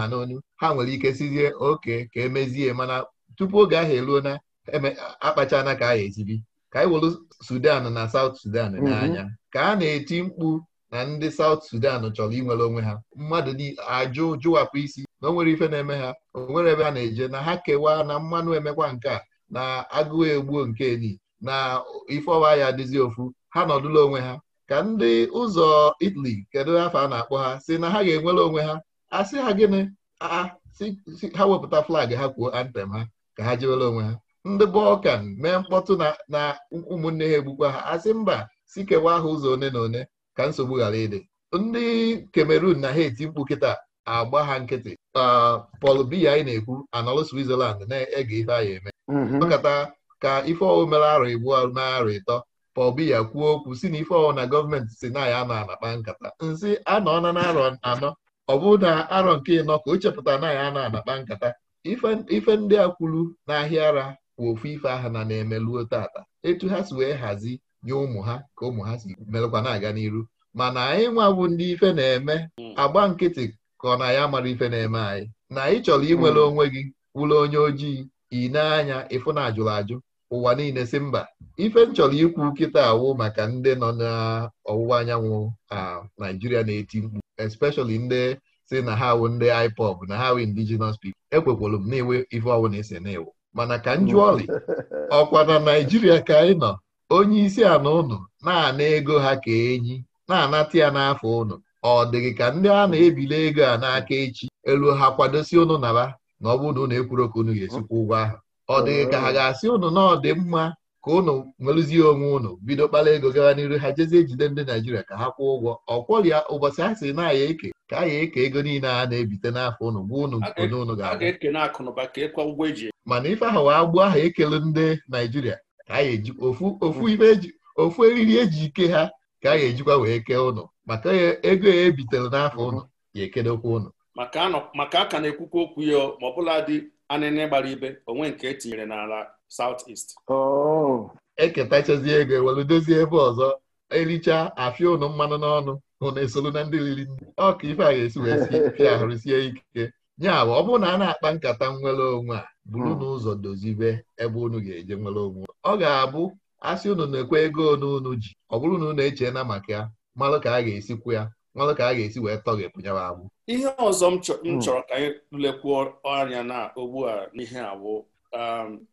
ha n'onu ha nwere ike sizie oke ka emezie mana tupu oge ahụ eruo na e akpachana ka ahụ esibi ka anyị were Sudan na South Sudan mhm. n'anya ka a na-eti mkpu na ndị South Sudan chọrọ inwere onwe ha mmadụ ajụ jụwapụ isi na o nwere ife na-eme ha o nwere ebe a na-eje na ha kewaa na mmanụ emekwa nke a na agụụ egbuo nke ni na ife ọwa ya adịzi ofu ha nọdụla onwe ha ka ndị ụzọ Italy kedu afọ a na-akpọ ha si na ha ga-enwere onwe ha asị ha gịnị ha wepụta flag ha kwuo antem ha ka ha jewere onwe ha ndị bọlkan mee mkpọtụ na ụmụnne ha egbukwa ha asị mba si kewa ha ụzọ one na one ka nsogbu ghara ịdị ndị kamerun na Haiti mkpu kịta agba ha nkịtị Paul Biya anyị na-ekwu anọlụ Switzerland na-ege ife ya eme mhm. ọkata ka ife ọwụ mere arụ igbu mee arụ ịtọ ka ọ bụ ya kwuo okwu si na ife ọwụ na gọọmenti si na ya na anakpa nkata nsị anọọna na arọ anọ ọ bụ na arọ nke ịnọ ka o chepụta na ya na anakpa nkata ife ndị a kwuru n'ahịa ara kwa ofu ife aha na na-emeluo tata etu ha si wee hazi nye ụmụ ha ka ụmụ ha si melụkwa na-aga n'iru mana anyị nwabụ ndị ife na-eme agba nkịtị ka ọ na ya mara ife na-eme anyị na anyị chọrọ inwere hmm. onwe gị wụrụ onye ojii ị anya ịfụ na ajụrụ ajụ ụwa niile si mba ife m chọrọ ikwu kịta awụ maka ndị nọ n'ọwụwa anyanwụ Naijiria na-eti mkpu especially ndị si na ha awụ ndị IPOB na ha indigenous people ekwekwolu m na enwe ife ọwụ na-ese na mana ka m jụọ ọlị <laughs> ọkwa na Naijiria ka anyị nọ onye isi ana ụnụ na-ana ego ha ka enyi na-anata ya n'afọ ụnụ ọ dịghị ka ndị a na-ebili ego a n'aka echi elu ha kwadosi ụnụ naba na ọ bụrụ na ụnụ ekwuru ka unu ga-esikwa ụgwọ ahụ ọ dịghị ka ha ga-asị ụnụ na ọ dị mma ka ụnụ nwerụzie onwe ụnụ bido kpara ego gara n'iru ha jezie jide ndị Naijiria ka ha kwụọ ụgwọ ya, ụbọchị a sị na aya eke ka aya eke ego niile a na-ebite n'afọ ụnụ gwa ụnụ one ụnụ ga-abụ e e e. mana ife ahụ wee gbuo aha ekele ndị Naijiria ka a eji ofu ife eji ofu eriri eji ike ha ka a ya ejikwa wee kee ụnụ maka ego ya ebitere n'afọ ụnụ ya ekedekwa ụnụ maka a ka na-ekwukwa okwu ya ma anịnị gbara ibe onwe nke etinyere n'ala South eketa oh. eketachazi ego ewelu dozie ebe ọzọ ericha afịa ụnụ mmanụ n'ọnụ ụnụ esolu na ndị riri nri ọ ka ife a ga-esi wee ahụrụ <laughs> sie ike ya ọ bụrụ na a na-akpa nkata nwere onwe a buru hmm. n'ụzọ dozibe ebe unu ga-eje nwere onwe ọ ga-abụ asị unu na-ekwe ego unu unu ji ọ bụrụ na unu echeela maka ya malụ ka a ga-esikwu ya ọnụ ka a ga-esi wee tọ gị pụnyawa agbụ ihe ọzọ m hmm. chọrọ ka anyị lekwuo anya na ugbu a n'ihe abụ um,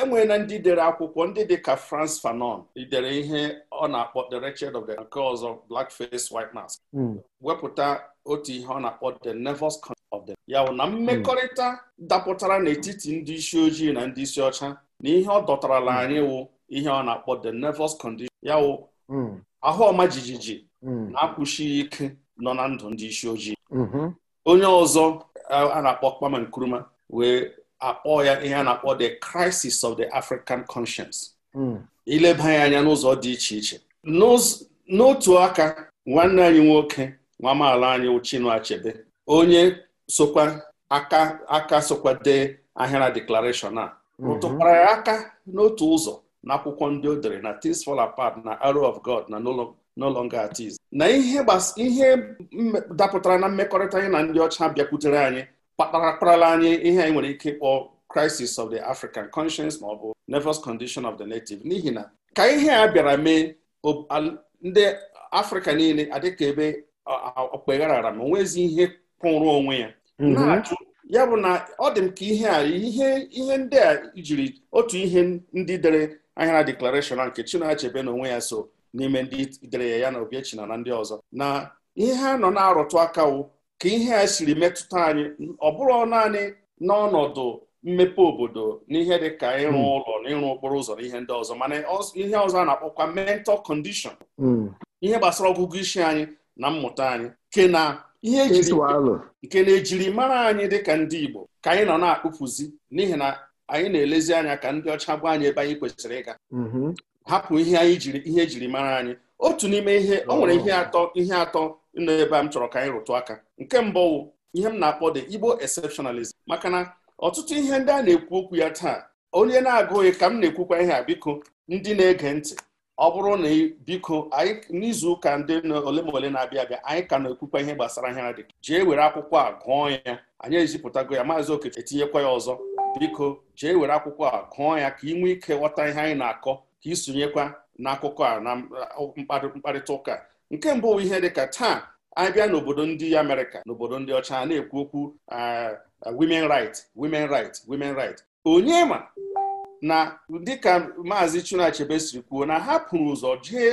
enwere na ndị dere akwụkwọ ndị dị ka Frantz Fanon dere ihe ọ na-akpọ The Wretched of the nke ọzọ Blackface White Mask hmm. wepụta otu ihe ọ na-akpọ The Nervous of the ya na hmm. mmekọrịta dapụtara n'etiti ndị isi ojii na ndị isi ọcha na ihe ọ dọtarala anyị wụ ihe ọ na-akpọ the nervous condition ya wụ ahụ ọma jijiji Mm. na-akwụsị ike nọ na ndụ ndị isi ojii mm-hmm. onye ọzọ a na-akpọ Kwame Nkrumah wee akpọ ya ihe a na-akpọ the crisis of the African conscience mm. ileba ya anya n'ụzọ dị iche iche n'otu aka nwanne anyị nwoke nwa amaala anyị Chinua Achebe onye sokwa aka aka sokwa dee ahịara deklarashọn a mm-hmm. rụtụkwara ya aka n'otu ụzọ n'akwụkwọ ndị o dere na Things Fall Apart na Arrow of God na n'ụlọ no longer at na ihe ihe dapụtara na mmekọrịta anyị na ndị ọcha bịakwutere anyị kpatarakparala anyị ihe anyị nwere ike ịkpọ crisis of the African conscience ma ọ bụ nervous condition of the native n'ihi na ka ihe a bịara mee ndị Afrịka niile adịka ebe okpegharara ma onwezi ihe kwụrụ onwe ya mhm. na ya bụ na ọ dị m ka ihe a ihe ihe ndị a jiri otu ihe ndị dere ahịara deklarashọn nke Chinua Achebe na onwe ya so n'ime ndị dere ya ya na Obiechina na ndị ọzọ na ihe ha nọ na-arụtụ akawo ka ihe a siri metụta anyị ọ bụrụ naanị n'ọnọdụ mmepe obodo n'ihe dị ka ịrụ hmm. ụlọ na ịrụ okporo ụzọ na ihe ndị ọzọ mana ihe ọzọ a na-akpọkwa mental condition hmm. ihe gbasara ọgụgụ isi anyị na mmụta anyị nke na ihe nke na-ejiri mara anyị dịka ndị Igbo ka anyị nọ na-akpụpụzi n'ihi na anyị na-elezi anya ka ndị ọcha gwa anyị ebe anyị kwesịrị ịga hmm. hapụ ihe anyị jiri ihe jiri mara anyị otu n'ime ihe ọ nwere ihe atọ ihe atọ nọ ebe a m chọrọ ka anyị rụtụ aka nke mbụ ihe m na-akpọ dị Igbo exceptionalism maka na ọtụtụ ihe ndị a na-ekwu okwu ya taa onye na-agụghị ka m na-ekwukwa ihe a biko ndị na-ege ntị ọ bụrụ na biko anyị n'izu ụka ndị ole ma ole na-abịa abịa anyị ka na-ekwukwa ihe gbasara ihe dị jee were akwụkwọ a gụọ ya anyị ezipụtago ya maazị Okeke etinyekwa ya ọzọ biko jee were akwụkwọ a gụọ ya ka ị nwee ike ghọta ihe anyị na-akọ ka isonyekwa n'akụkọ a na mkparịta ụka nke mbụ ihe dịka taa abịa n'obodo ndị Amerịka n'obodo ndị ọcha na-ekwu okwu women right women right women right onye ma na dịka maazị chinua siri kwuo na ha pụrụ ụzọ jee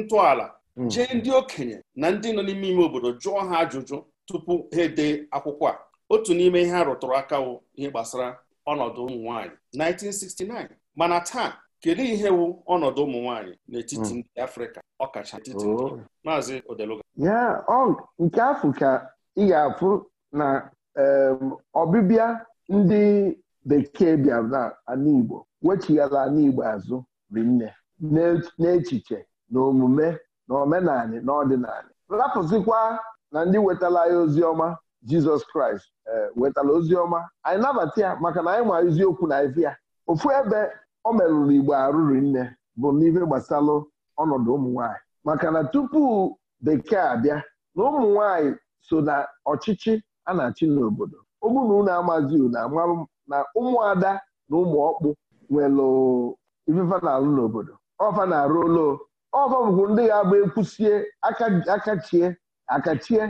ntọala hmm. jee ndị okenye na ndị nọ n'ime ime obodo jụọ ha ajụjụ tupu ha ede akwụkwọ a otu n'ime ihe ha rụtụrụ aka ihe gbasara ọnọdụ ụmụ nwaanyị 1969 mana taa kedu ihe wu ọnọdụ ụmụ nwaanyị n'etiti hmm. ndị afrịka ọkacha etiti oh. maazị ya nke afọ ka ị ga-afụ na ọbịbịa ndị bekee bịara na ala igbo wechighara ala igbo azụ rinne n'echiche na omume na omenala na ọdịnala rapụzikwa na ndị wetara ya ozi ọma jizọs kraịst eh, wetara ozi ọma anyị nabata ya maka na anyị ma eziokwu na ya ofu ebe o merụrụ igbo arụrụ nne bụ n'ife gbasalụ ọnọdụ ụmụ nwanyị maka na tupu bekee abịa na ụmụ nwanyị so na ọchịchị a na-achị n'obodo ụmụna unu amazi na ụmụada na ụmụ ọkpụ nwere ifefa na-alụ n'obodo ọfa na-arụ ụlọ ọfa bụkwu ndị ga-agba ekwusie akachie akachie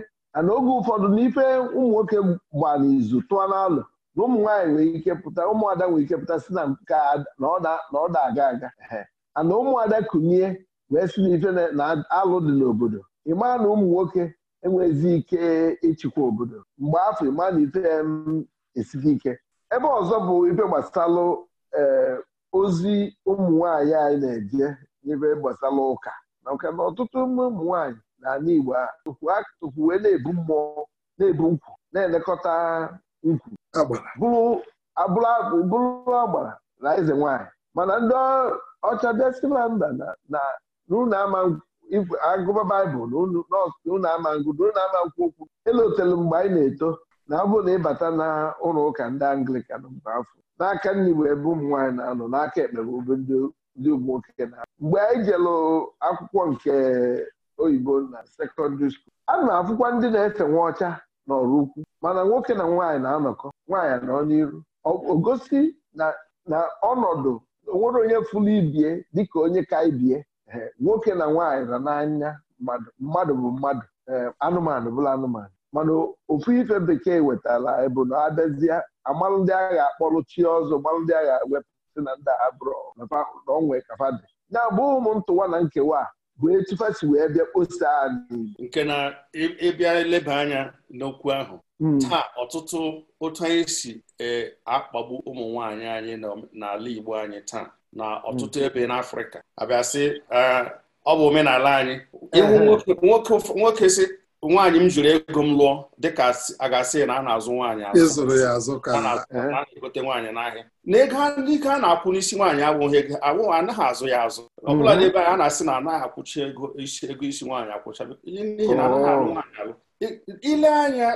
na oge ụfọdụ n'ife ụmụ nwoke gba n'izu tụọ n'alụ na ụmụ nwaanyị nwere ike pụta ụmụada nwere ike pụta si na nke na ọ da-aga aga ana ụmụada kunie wee si n'ife na alụ dị n'obodo ịma na ụmụ nwoke enwezi ike ịchịkwa obodo mgbe afọ ịmaa na ife esighị ike ebe ọzọ bụ ife gbasalụ eh, ozi ụmụ nwaanyị anyị na-eje n'ife gbasara ụka maka na ọtụtụ ụmụ nwaanyị na ala Igbo tupu wee na-ebu mmụọ na-ebu nkwụ na-elekọta ukwu bụrụ agbara na eze nwanyị mana ndị ọcha destilanda na n'ụlọ ama agụba baịbụl n'ụlọ ama ngụ ụlọ ama nkwụ okwu elotelu mgbe anyị na-eto na ọ na ịbata na ụlọ ụka ndị anglikan mgbe afọ n'aka nri bụ ebe ụmụ nwaanyị na-anọ n'aka ekpe bụ ebe ndị ụmụnwoke na mgbe anyị jelụ akwụkwọ nke oyibo na sekọndịrị skuul a na-afụkwa ndị na-efe nwa ọcha n'ọrụ ukwu mana nwoke na nwaanyị na-anọkọ nwaanyị nọ n'iru gosi na ọnọdụ onwere onye fụlụ ibie dịka onye ka ibie e, nwoke na nwaanyị na n'anya mmadụ bụ mmadụ e, anụmanụ bụla anụmanụ mana ofu ife bekee wetara bụ na abịazie amalụ ndị agha akpọrọ chi ọzọ gbalụ ndị agha wepụsị na ndị abụrụ na onwe kafadị na-abụ ụmụ ntụwa na nkewa bụ etu wee bịa kposa nke na ịbịa eleba anya n'okwu ahụ hmm. taa ọtụtụ otu anyị si e, akpagbu ụmụ nwanyị anyị n'ala Igbo anyị taa na ọtụtụ hmm. ebe n'Afrịka sị, ah, ọ bụ omenala anyị nwoke si nwaanyị m jụrụ ego m lụọ dịka a ga-asị na a na-azụ nwaanyị azụ na nwaanyị n'ahịa na ego ike a na-akwụ n'isi nwaanyị abụghị ego abụghị anaghị azụ ya azụ ọ bụla mhm. na-ebe anyị a na-asị na anaghị akwụcha ego isi ego isi nwaanyị akwụcha n'ihi na anaghị alụ oh. nwaanyị alụ ile anya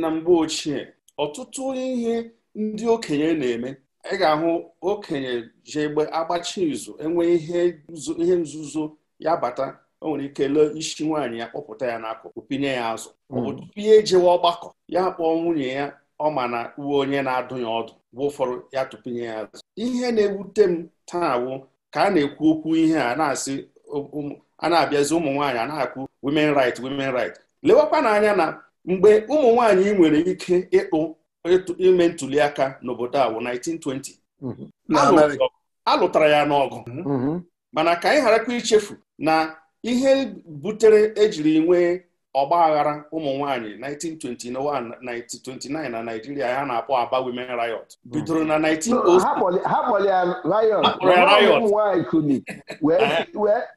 na mgbe ochie ọtụtụ ihe ndị okenye na-eme ị ga-ahụ okenye ji egbe agbachi izu enwe ihe nzuzo ya bata o nwere ike lee isi nwaanyị ya kpọpụta ya n'akụkụ pinye ya azụ ọ bụ hmm. ejewe e ọgbakọ ya kpọọ nwunye ya ọ ma na uwe onye na-adụ ya ọdụ bụ ụfọdụ ya tụpinye ya azụ ihe na-ewute m taa wụ ka a na-ekwu okwu ihe a na-asị um, um, a na-abịazi ụmụ nwaanyị a na akwụ women right women right lewekwa n'anya na mgbe ụmụ nwaanyị nwere ike ịkpụ ime ntuli aka n'obodo a wụ 1920 mhm. a lụtara ya n'ọgụ mhm. mana ka anyị gharakwa ichefu na ihe butere ejiri nwee ọgba aghara ụmụ nwanyị 1921 1929 na Naijiria ya na-akpọ Aba Women Riot hmm. bidoro na 1906 ha kpọrọ ya riot ụmụ nwaanyị kuni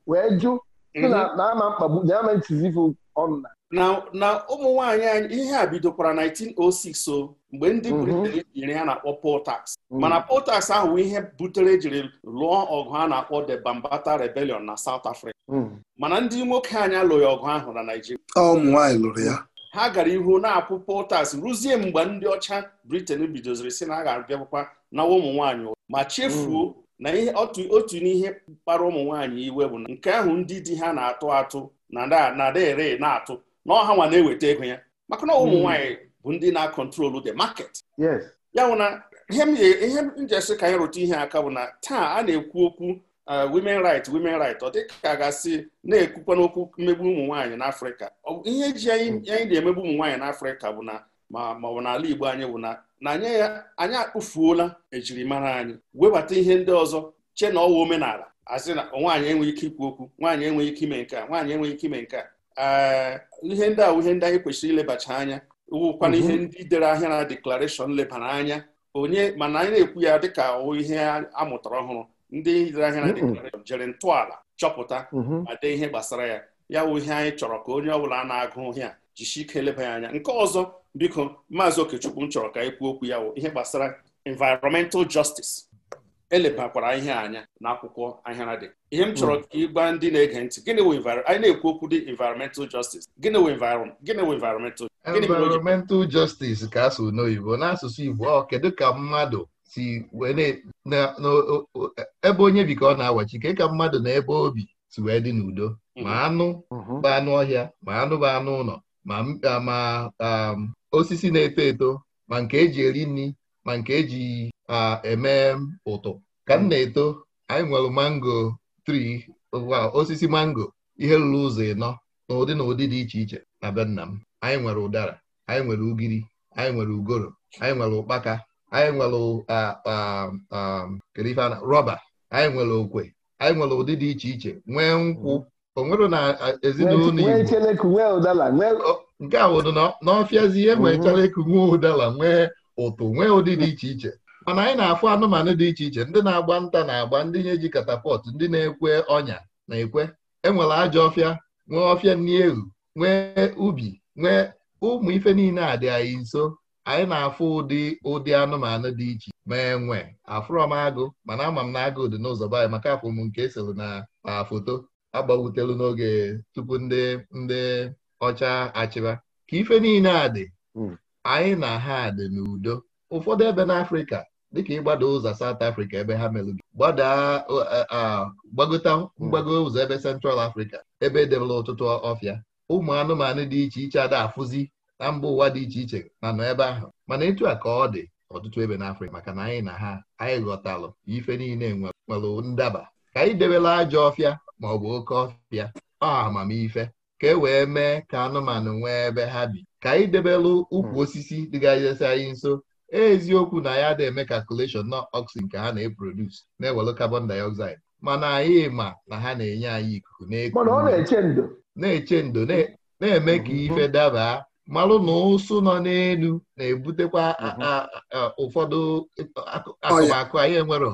wee jụ na mhm. ama mkpagbu na ama ntizivu ọnụ na ụmụ nwanyị anyị ihe a bidokwara 1906 o mgbe ndị Britain mhm. nyere ya na-akpọ poll tax mhm. mana poll tax ahụ ihe butere jiri lụọ ọgụ a na-akpọ the Bambata Rebellion na South Africa Hmm. mana ndị nwoke anyị alụghị ọgụ ahụ na Naịjirịa ụmụ nwaanyị lụrụ ya ha gara ihu na-akwụpụ potas ruzie mgbe ndị ọcha Briten bidoziri si na a ga-abịakwakwa nawa ụmụ nwaanyị ma chefuo hmm. na otu n'ihe kpara ụmụ nwaanyị iwe bụ na nke ahụ ndị di ha na-atụ atụ na dere na-atụ na ọha nwa na-eweta ego ya maka na ụmụ hmm. nwaanyị bụ ndị na-akọntrolu the market ya bụ na ihe m ji esi ka anyị rụta ihe aka bụ na taa a na-ekwu okwu Uh, women right women right ọ dịka gasị na-ekwukwa n'okwu mmegbu ụmụ nwaanyị afrịka ihe ji mm. anyị na-emegbu ụmụ nwaanyị afrịka bụ na ma ma n'ala igbo anyị bụ na ya anyị akpụfuola ejirimara anyị webata ihe ndị ọzọ che na ọwa omenala asị na nwaanyị enweghị ike ikwu okwu nwaanyị enweghị ike ime nke a nwaanyị enweghị ike ime nke a uh, ihe ndị ahụ ihe ndị anyị kwesịrị ilebacha anya wụkwana ihe mm-hmm. ndị dere ahịa na deklarashọn lebara anya onye mana anyị na-ekwu ya dịka ihe a mụtara ọhụrụ ndị lere anya na jere ntọala chọpụta mm-hmm. ma dee ihe gbasara ya ya wụ ihe anyị chọrọ ka onye ọbụla a na-agụ ihe a jishi ike eleba ya anya nke ọzọ biko maazị okechukwu m chọrọ ka anyị kwuo okwu ya wụ ihe gbasara environmental justice elebakwara ihe anya n'akwụkwọ ahịa na dị ihe m chọrọ mm. ka ịgba ndị na-ege ntị gịnị wụ anyị na-ekwu okwu dị environmental justice gịnị wụ environmental environmental justice ka asụ n'oyibo n'asụsụ Igbo ọ kedu ka mmadụ si wee na e, ebe onye bi ka ọ na-awachi ke ka mmadụ na ebe obi si wee dị n'udo mm-hmm. ma anụ mm-hmm. bụ anụ ọhịa ma anụ bụ anụ ụlọ ma um, osisi na-eto eto ma nke eji eri nri ma nke eji eme ụtụ ka m mm-hmm. na-eto anyị nwere mango tri osisi mango ihe ruru ụzọ ịnọ n'ụdị na ụdị dị iche iche na be nna m anyị nwere ụdara anyị nwere ugiri anyị nwere ugoro anyị nwere ụkpaka anyị nwere kedu ife rọba anyị nwere okwe anyị nwere ụdị dị iche iche nwee nkwụ onwere na ezinụlọ Igbo nke a wụdụ n'ọfịazi ihe nwee mhm. nwee ụdala nwee ụtụ nwee ụdị dị iche iche mana anyị na-afụ anụmanụ dị iche iche ndị na-agba nta na-agba ndị nye ji katapọt ndị na-ekwe ọnya na-ekwe enwere ajọ ọfịa nwee ọfịa nni ehu nwee ubi nwee ụmụ ife niile a dị anyị nso anyị na-afụ ụdị ụdị anụmanụ dị iche ma enwe afụrọ m agụ mana ama m na agụ dị n'ụzọ be anyị maka afụm nke esoro na na foto agbawutelu n'oge tupu ndị ndị ọcha achịba ka ife niile a dị hmm. anyị na ha dị n'udo ụfọdụ ebe n'Afrịka dịka ịgbada ụzọ South afrịka ebe ha melụ gị gbagota hmm. mgbago ụzọ ebe sentral afrịka ebe edebela ọtụtụ ọfịa ụmụ anụmanụ dị iche iche ada afụzi na mba ụwa dị iche iche na nọ ebe ahụ mana etu a ka ọ dị ọtụtụ ebe n'Afrịka maka na anyị na ha anyị ghọtalụ ife niile nwere ndaba ka anyị debela ajọ ọfịa ma ọ bụ oke ọfịa ọ amamife ka e wee mee ka anụmanụ nwee ebe ha bi ka anyị debelụ ukwu hmm. osisi dịgazesi anyị nso eziokwu na ya dị eme calculation na oxygen nke ha na-eprodus na-ewelụ carbon dioxide mana anyị ma na ha na-enye anyị ikuku na na-eche ndo na-eme ka mhm. ife dabaa malụ na ụsụ nọ n'elu na-ebutekwa mhm. ụfọdụ oh, akụmakụ anyị enwero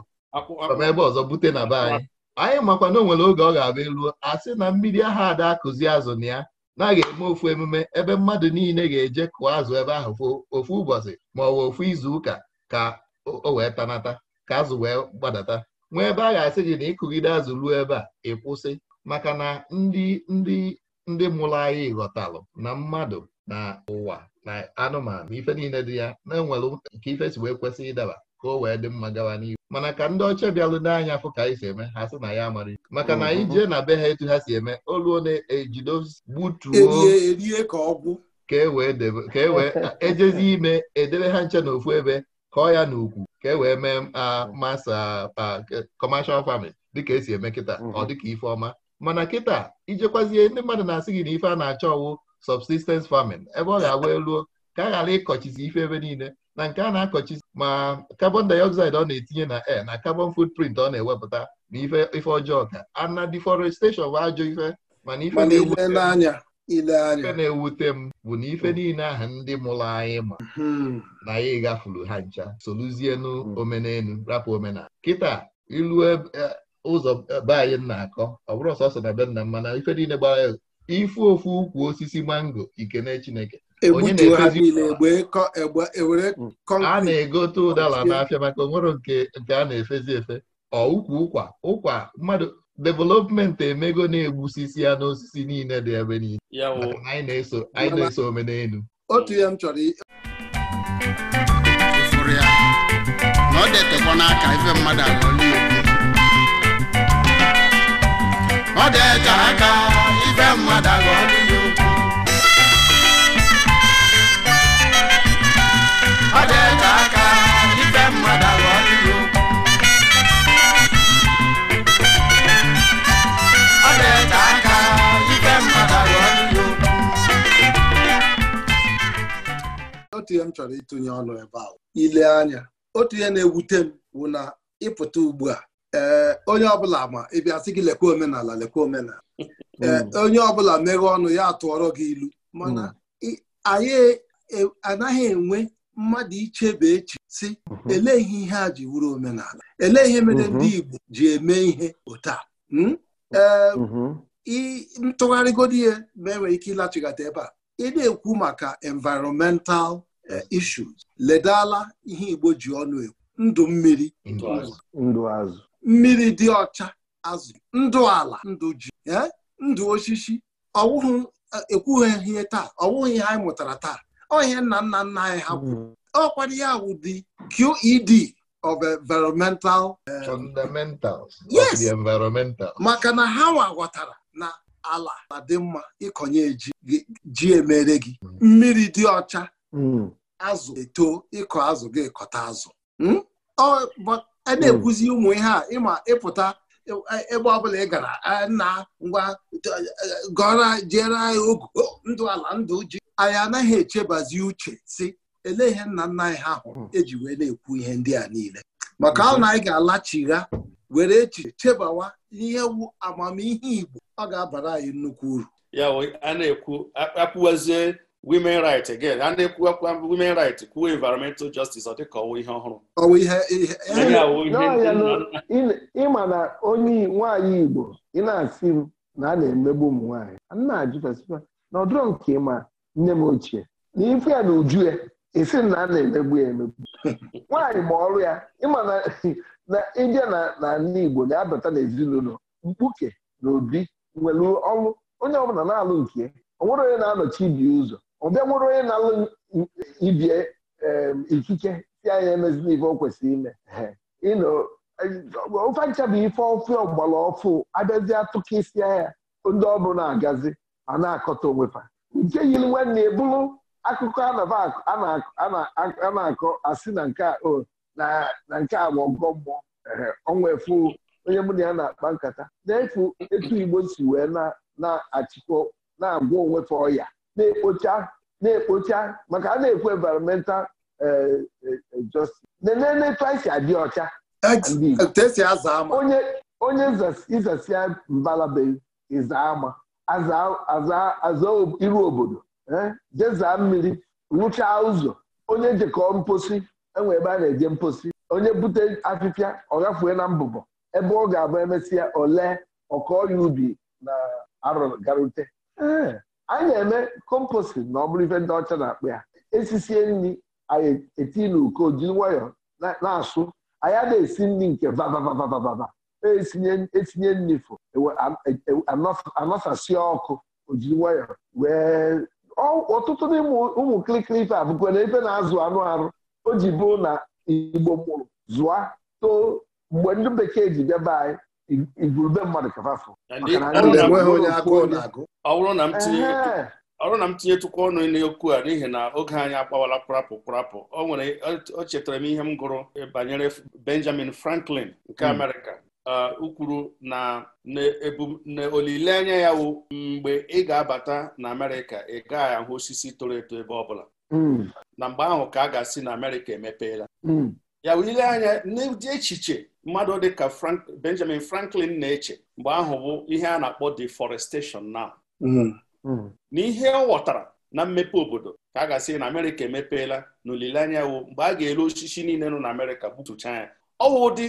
ebe ọzọ bute na be anyị anyị makwa na o nwere oge ọ ga-abịa eluo a sị na mmiri aha ada akụzi azụ na ya na-aga eme ofu emume ebe mmadụ niile ga-eje kụọ azụ ebe ahụ ofu ụbọchị ma ọ bụ ofu izu ụka ka o wee tanata ka azụ wee gbadata nwee ebe a ga-asị gị na ịkụgide azụ ruo ebe a ịkwụsị maka na ndị ndị ndị mụrụ anyị ghọtalụ na mmadụ na ụwa na anụmanụ ife niile dị ya na-enwere nke ife si wee kwesị ịdaba ka o wee dị mma gawa n'ihu mana ka ndị ọcha bịalụ n'anya afọ ka anyị si eme ha sị na ya amara maka na anyị jee na be ha etu ha si eme oluo na-ejido gbutuo ka ọgwụ ka e wee ejezi e e ime edebe ha nche n'ofu ebe kọọ ya n'ukwu ka e wee mee masa kọmashal famin dịka esi eme kịta ọ dịka ife ọma mana kịta ijekwazie ndị mmadụ na-asị gị na ife a na-achọ ọwụ subsistence farming ebe ọ ga-agwa eluo ka a ghara ịkọchizi ife ebe niile na nke a na-akọchizi ma carbon dioxide ọ na-etinye na air na carbon footprint ọ na-ewepụta na ife ọjọọ ka ana deforestation bụ ajọ ife mana ife na-ewute m bụ na ife niile ahụ ndị mụrụ anyị ma hmm. na ya ịgafuru ha ncha soluzienu hmm. omenelu rapụ omenala kịta ilu ụzọ be anyị na-akọ ọ bụrụ sọsọ na be nna m na ife niile gbara ifu ofu ukwu osisi mango ikene Chineke e onye e hmm. a na-egote ụdala n'afịa maka onwere nke a na-efezi efe ọ ukwu ụkwa ụkwa mmadụ development emego na-egbusisi ya n'osisi niile dị ebe niile anyị na-eso omenelu otu ya m chọrọ ọ dị n'aka ife mmadụ ọ dị aka ife mmadụ agụ ọdịghị ọ aka mmadụ ọ dị aka mmadụ otu ihe m chọrọ ịtụnye ọnụ ebe ahụ ile anya otu ihe na-ewute m bụ na ịpụta ugbu a ee eh, onye ọbụla ma ịbịa sị gị lekwa omenala lekwa omenala <laughs> hmm. ee eh, onye ọbụla meghe ọnụ ya tụọrọ gị ilu mana hmm. anyị e, anaghị enwe mmadụ ichebe echi si hmm. elee ihe ihe a ji wuru omenala elee ihe mere ndị Igbo ji eme ihe otu ee eh, ntụgharịgodo ihe ma enwere ike ịlachighata ebe a ị na-ekwu maka environmental issues ledala ihe Igbo ji ọnụ ekwu ndụ mmiri ndụ azụ mmiri dị ọcha azụ ndụ ala ndụ ji ndụ osisi ọwụghị e, ekwughị ihe taa ọwụghị ihe anyị mụtara taa ọ ihe nna nna nna anyị ha kwuru ọkwara ya wụ dị QED of environmental eh, yes maka na ha ghọtara na ala na dị mma ịkọnye ji ji emere gị mmiri dị ọcha mm. azụ eto ịkọ azụ gị kọta azụ hmm? a hmm. na-ekwuzi ụmụ ihe a ịma ịpụta ebe ọbụla ị gara nna ngwa gọra jere anyị ogu oh, ndụ ala ndụ ji anyị anaghị echebazi uche si elee ihe nna nna anyị ha hụrụ hmm. eji wee na-ekwu ihe ndị a niile maka ahụ na anyị ga-alachigha were echiche chebawa ihe wu amamihe Igbo ọ ga-abara anyị nnukwu uru ya a na-ekwu akpụwazie women right again a na-ekwuwakwa um, women right kwuo environmental justice ọ dịka ọwụ ihe ọhụrụ ịma na onye nwaanyị igbo ị na-asị m na a na-emegbu ụmụ nwaanyị na-ajụ na ọdụrọ nke ma nne m ochie na ife ya na uju ya esi na a na-emegbu ya emegbu <laughs> nwaanyị ma ọrụ ya ịma na <laughs> ịbịa n'ala igbo na-abata n'ezinụlọ mkpuke na obi nwere ọrụ onye ọbụla na-alụ nke onwere onye na-anọchi ibi ụzọ ọ bịa nwere onye na-alụ ibie ikike si anya emezila ife o kwesịrị ime ịnọ ofe bụ ife ọfụ ogbala ọfụ abịazi atụka isi anya ndị ọbụ na-agazi a na-akọta onwefa nke yiri nwanne ebulu akụkọ a na-akọ asị na nke a bụ ọgọ mmụọ ọnwa efu onye mụ na ya na-akpa nkata na-efu etu Igbo si wee na-achịkọ na-agwọ onwefe ọya na-ekpocha na-ekpocha maka a na-ekwu environmental eh, eh, eh, justice na-enetu anyị adị ọcha onye ịzasịa mbalaba ịza ama aza iru obodo jezaa mmiri rụchaa ụzọ onye jekọọ mposi enwe ebe a na-eje mposi onye bute afịfịa ọ na mbụbọ ebe ọ ga-abụ emesịa ole ọkọ ya ubi na arụgarute anyị na-eme kompostin na ọ bụrụ ife ndị ọcha na-akpụ ya esisie nri anyị eti na uko nwayọ nwayọọ na-asụ anyị na esi nri nke vavavavavava etinye e nri fụ e e, anọsasie ọkụ ojiri nwayọọ wee ọtụtụ n'ime ụmụ kirikiri ife abụkwara ebe na-azụ anụ arụ o ji bụrụ na igbo mụrụ zụa too mgbe ndị bekee ji bịaba anyị igurube mmadụ kafafu ọ na m tinye ọrụ na m ọnụ n'okwu a n'ihi na oge anyị agbawala kpụrapụ kpụrapụ o nwere o chetara m ihe m gụrụ banyere Benjamin Franklin nke hmm. Amerịka ukwuru na olileanya ya wụ mgbe ị ga-abata na Amerịka ị gaghị ahụ osisi toro eto ebe ọbụla hmm. na mgbe ahụ ka a ga-asị na Amerịka emepeela hmm. ya wụ ile anya n'ụdị echiche mmadụ dịka Benjamin Franklin na-eche mgbe ahụ bụ ihe a na-akpọ deforestation mm-hmm. mm. na n'ihe ọ ghọtara na mmepe obodo ka a ga-asị na Amerịka emepeela na olileanya wo mgbe a ga eru osisi niile nọ na Amerịka gbutucha ya ọwụ ụdị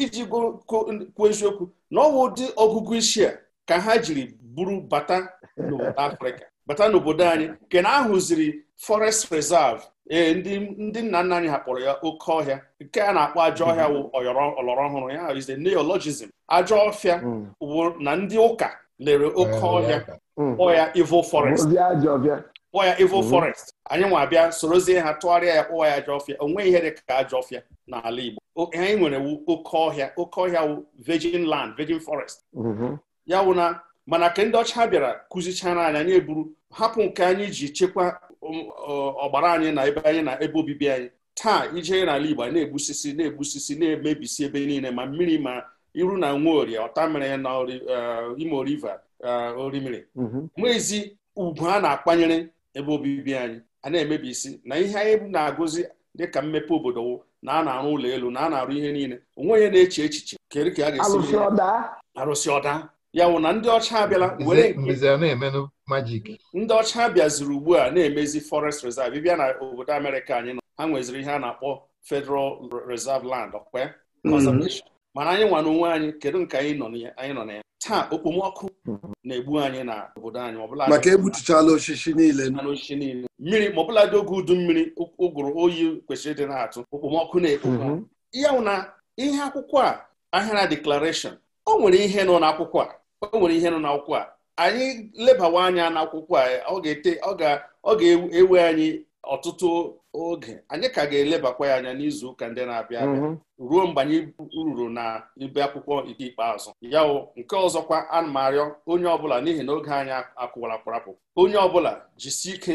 iji kwuo eziokwu na ọwụ ụdị ọgụgụ isi a ka ha jiri buru bata n'obodo Afrịka bata n'obodo anyị nke na ahụziri forest reserve ee ndị nna nna anyị hapụrụ ya oke ọhịa nke a na-akpọ ajọ ọhịa mhm. wụ ọlọrọ ọhụrụ ya is the neologism ajọ ọhịa bụ mm. na ndị ụka lere oke eh, mm. ọhịa kpọọ ya evil forest kpọọ ya evil forest anyị nwa abịa sorozie ha tụgharịa ya kpọwa ya ajọ ọfịa o nweghị ihe dị ka ajọ ọfịa n'ala Igbo anyị nwere oke ọhịa oke ọhịa wụ vegin land virgin forest mhm. ya wụ na mana ka ndị ọcha bịara kụzichara anyị anyị eburu hapụ nke anyị ji chekwa um, ọgbara anyị na ebe anyị na ebe obibi anyị taa ije n'ala Igbo na-egbusisi na-egbusisi na-emebisi ebe niile ma mmiri ma iru na nwaorie ọtamịrị na uh, ime River uh, orimiri mhm. nwezi ugwu a na-akpanyere ebe obibi anyị a na-emebisi na ihe anyị na-agụzi dịka mmepe obodo na a na-arụ ụlọ elu na a na-arụ ihe niile onwe onye na-eche echiche kedu ka a ga-esi arụsị ọda ya wụ na ndị ọcha abịala were ndị ọcha bịaziri ugbu a na-emezi forest reserve bịa na obodo amerịka anyị nọ ha nweziri ihe a na-akpọ federal reserve land ọkwa mm-hmm. mana anyị nwa n'onwe anyị kedu nke anyị nọ na ya taa okpomọkụ mm-hmm. na-egbu anyị na obodo anyị ọbụla maka egbutuchala osisi niile mmiri ma dị oge udu mmiri ụgụrụ oyi kwesịrị ịdị na-atụ okpomọkụ na-ekpo mm-hmm. ya wụ na ihe akwụkwọ a ahịara declaration o nwere ihe nọ n'akwụkwọ a o nwere ihe nọ n'akwụkwọ a anyị lebawa anya n'akwụkwọ a ọ ga-ete ọ ga-ewe anyị ọtụtụ oge anyị ka ga-elebakwa ya anya n'izu ụka ndị na-abịa abịa mhm. ruo mgbe anyị ruru na ibe akwụkwọ ike ikpeazụ ya nke ọzọkwa ana m arịọ onye ọbụla n'ihi na oge anyị akụwara kwarapụ onye ọbụla jisie ike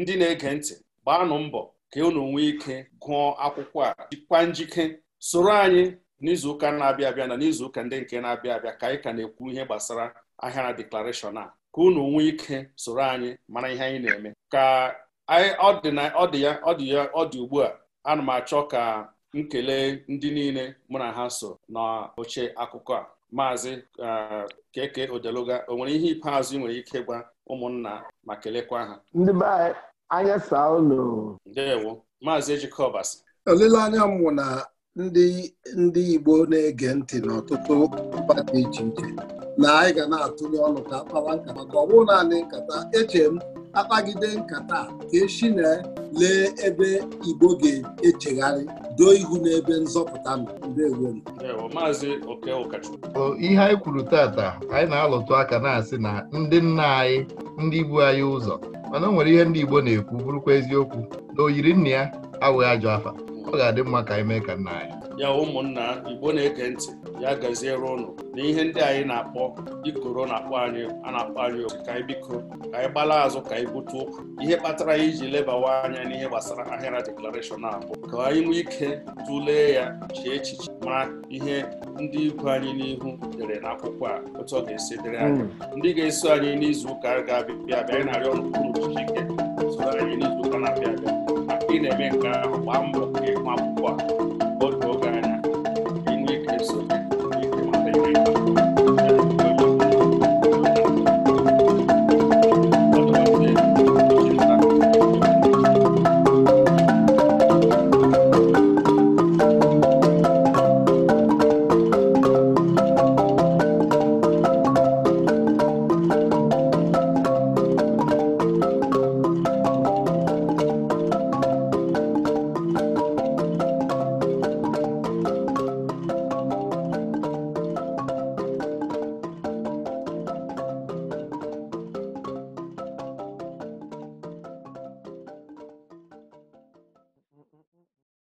ndị na-ege ntị gbaanụ mbọ ka unu nwee ike gụọ akwụkwọ a jikwa njike soro anyị n'izuụka na-abịa abịa na n'izuụka ndị nke na-abịa abịa ka anyị ka na-ekwu ihe gbasara ahịara deklarashọn a ka unu nwee ike soro anyị mara ihe anyị na-eme ka ọ dị ya ọ dị ọ dị ugbu a ana m achọ ka nkele ndị niile mụ na ha so n'oche akụkọ a maazị uh, keke odeluga o nwere ihe ikpeazụ ị nwere ike gwa ụmụnna ma kelekwa ha ndị be anya saa ụlọ ndewo maazị ejike olileanya m na ndị ndị Igbo na-ege ntị n'ọtụtụ mba dị iche iche na anyị ga na-atụnye ọnụ ka akpawa nkata maka ọ bụrụ naanị nkata eche m akpagide nkata ka echi na lee ebe igbo ga-echegharị doo ihu n'ebe nzọpụta ihe anyị kwuru tata anyị na-alụtụ aka na-asị na ndị nna anyị ndị bu anyị ụzọ mana o nwere ihe ndị igbo na-ekwu bụrụkwa eziokwu na oyiri nna ya awụghị ajọ afa ọ ga-adị mma ka anyị mee ka nna anyị ya ụmụnna igbo na eke ntị ya gaziere ụnụ na ihe ndị anyị na-akpọ ikoro na-akpọ anyị a na-akpọ anyị oku ka anyị biko ka anyị gbala azụ ka anyị bute ụkwụ ihe kpatara anyị iji lebawa anya n'ihe gbasara ahịara deklarashọn abụọ ka anyị nwee ike tụlee ya chee echiche ma ihe ndị ikwu anyị n'ihu dere akwụkwọ a otu ọ ga-esi dịrị anyị hmm. ndị ga-eso anyị n'izu ụka ga-abịa bịa anyị na-arịọ ọnụụnụ soro anyị n'izu ụka na-abịa abịa ị na-eme nke ahụ gbaa mbọ nke ịhụ akwụkwọ a absurda.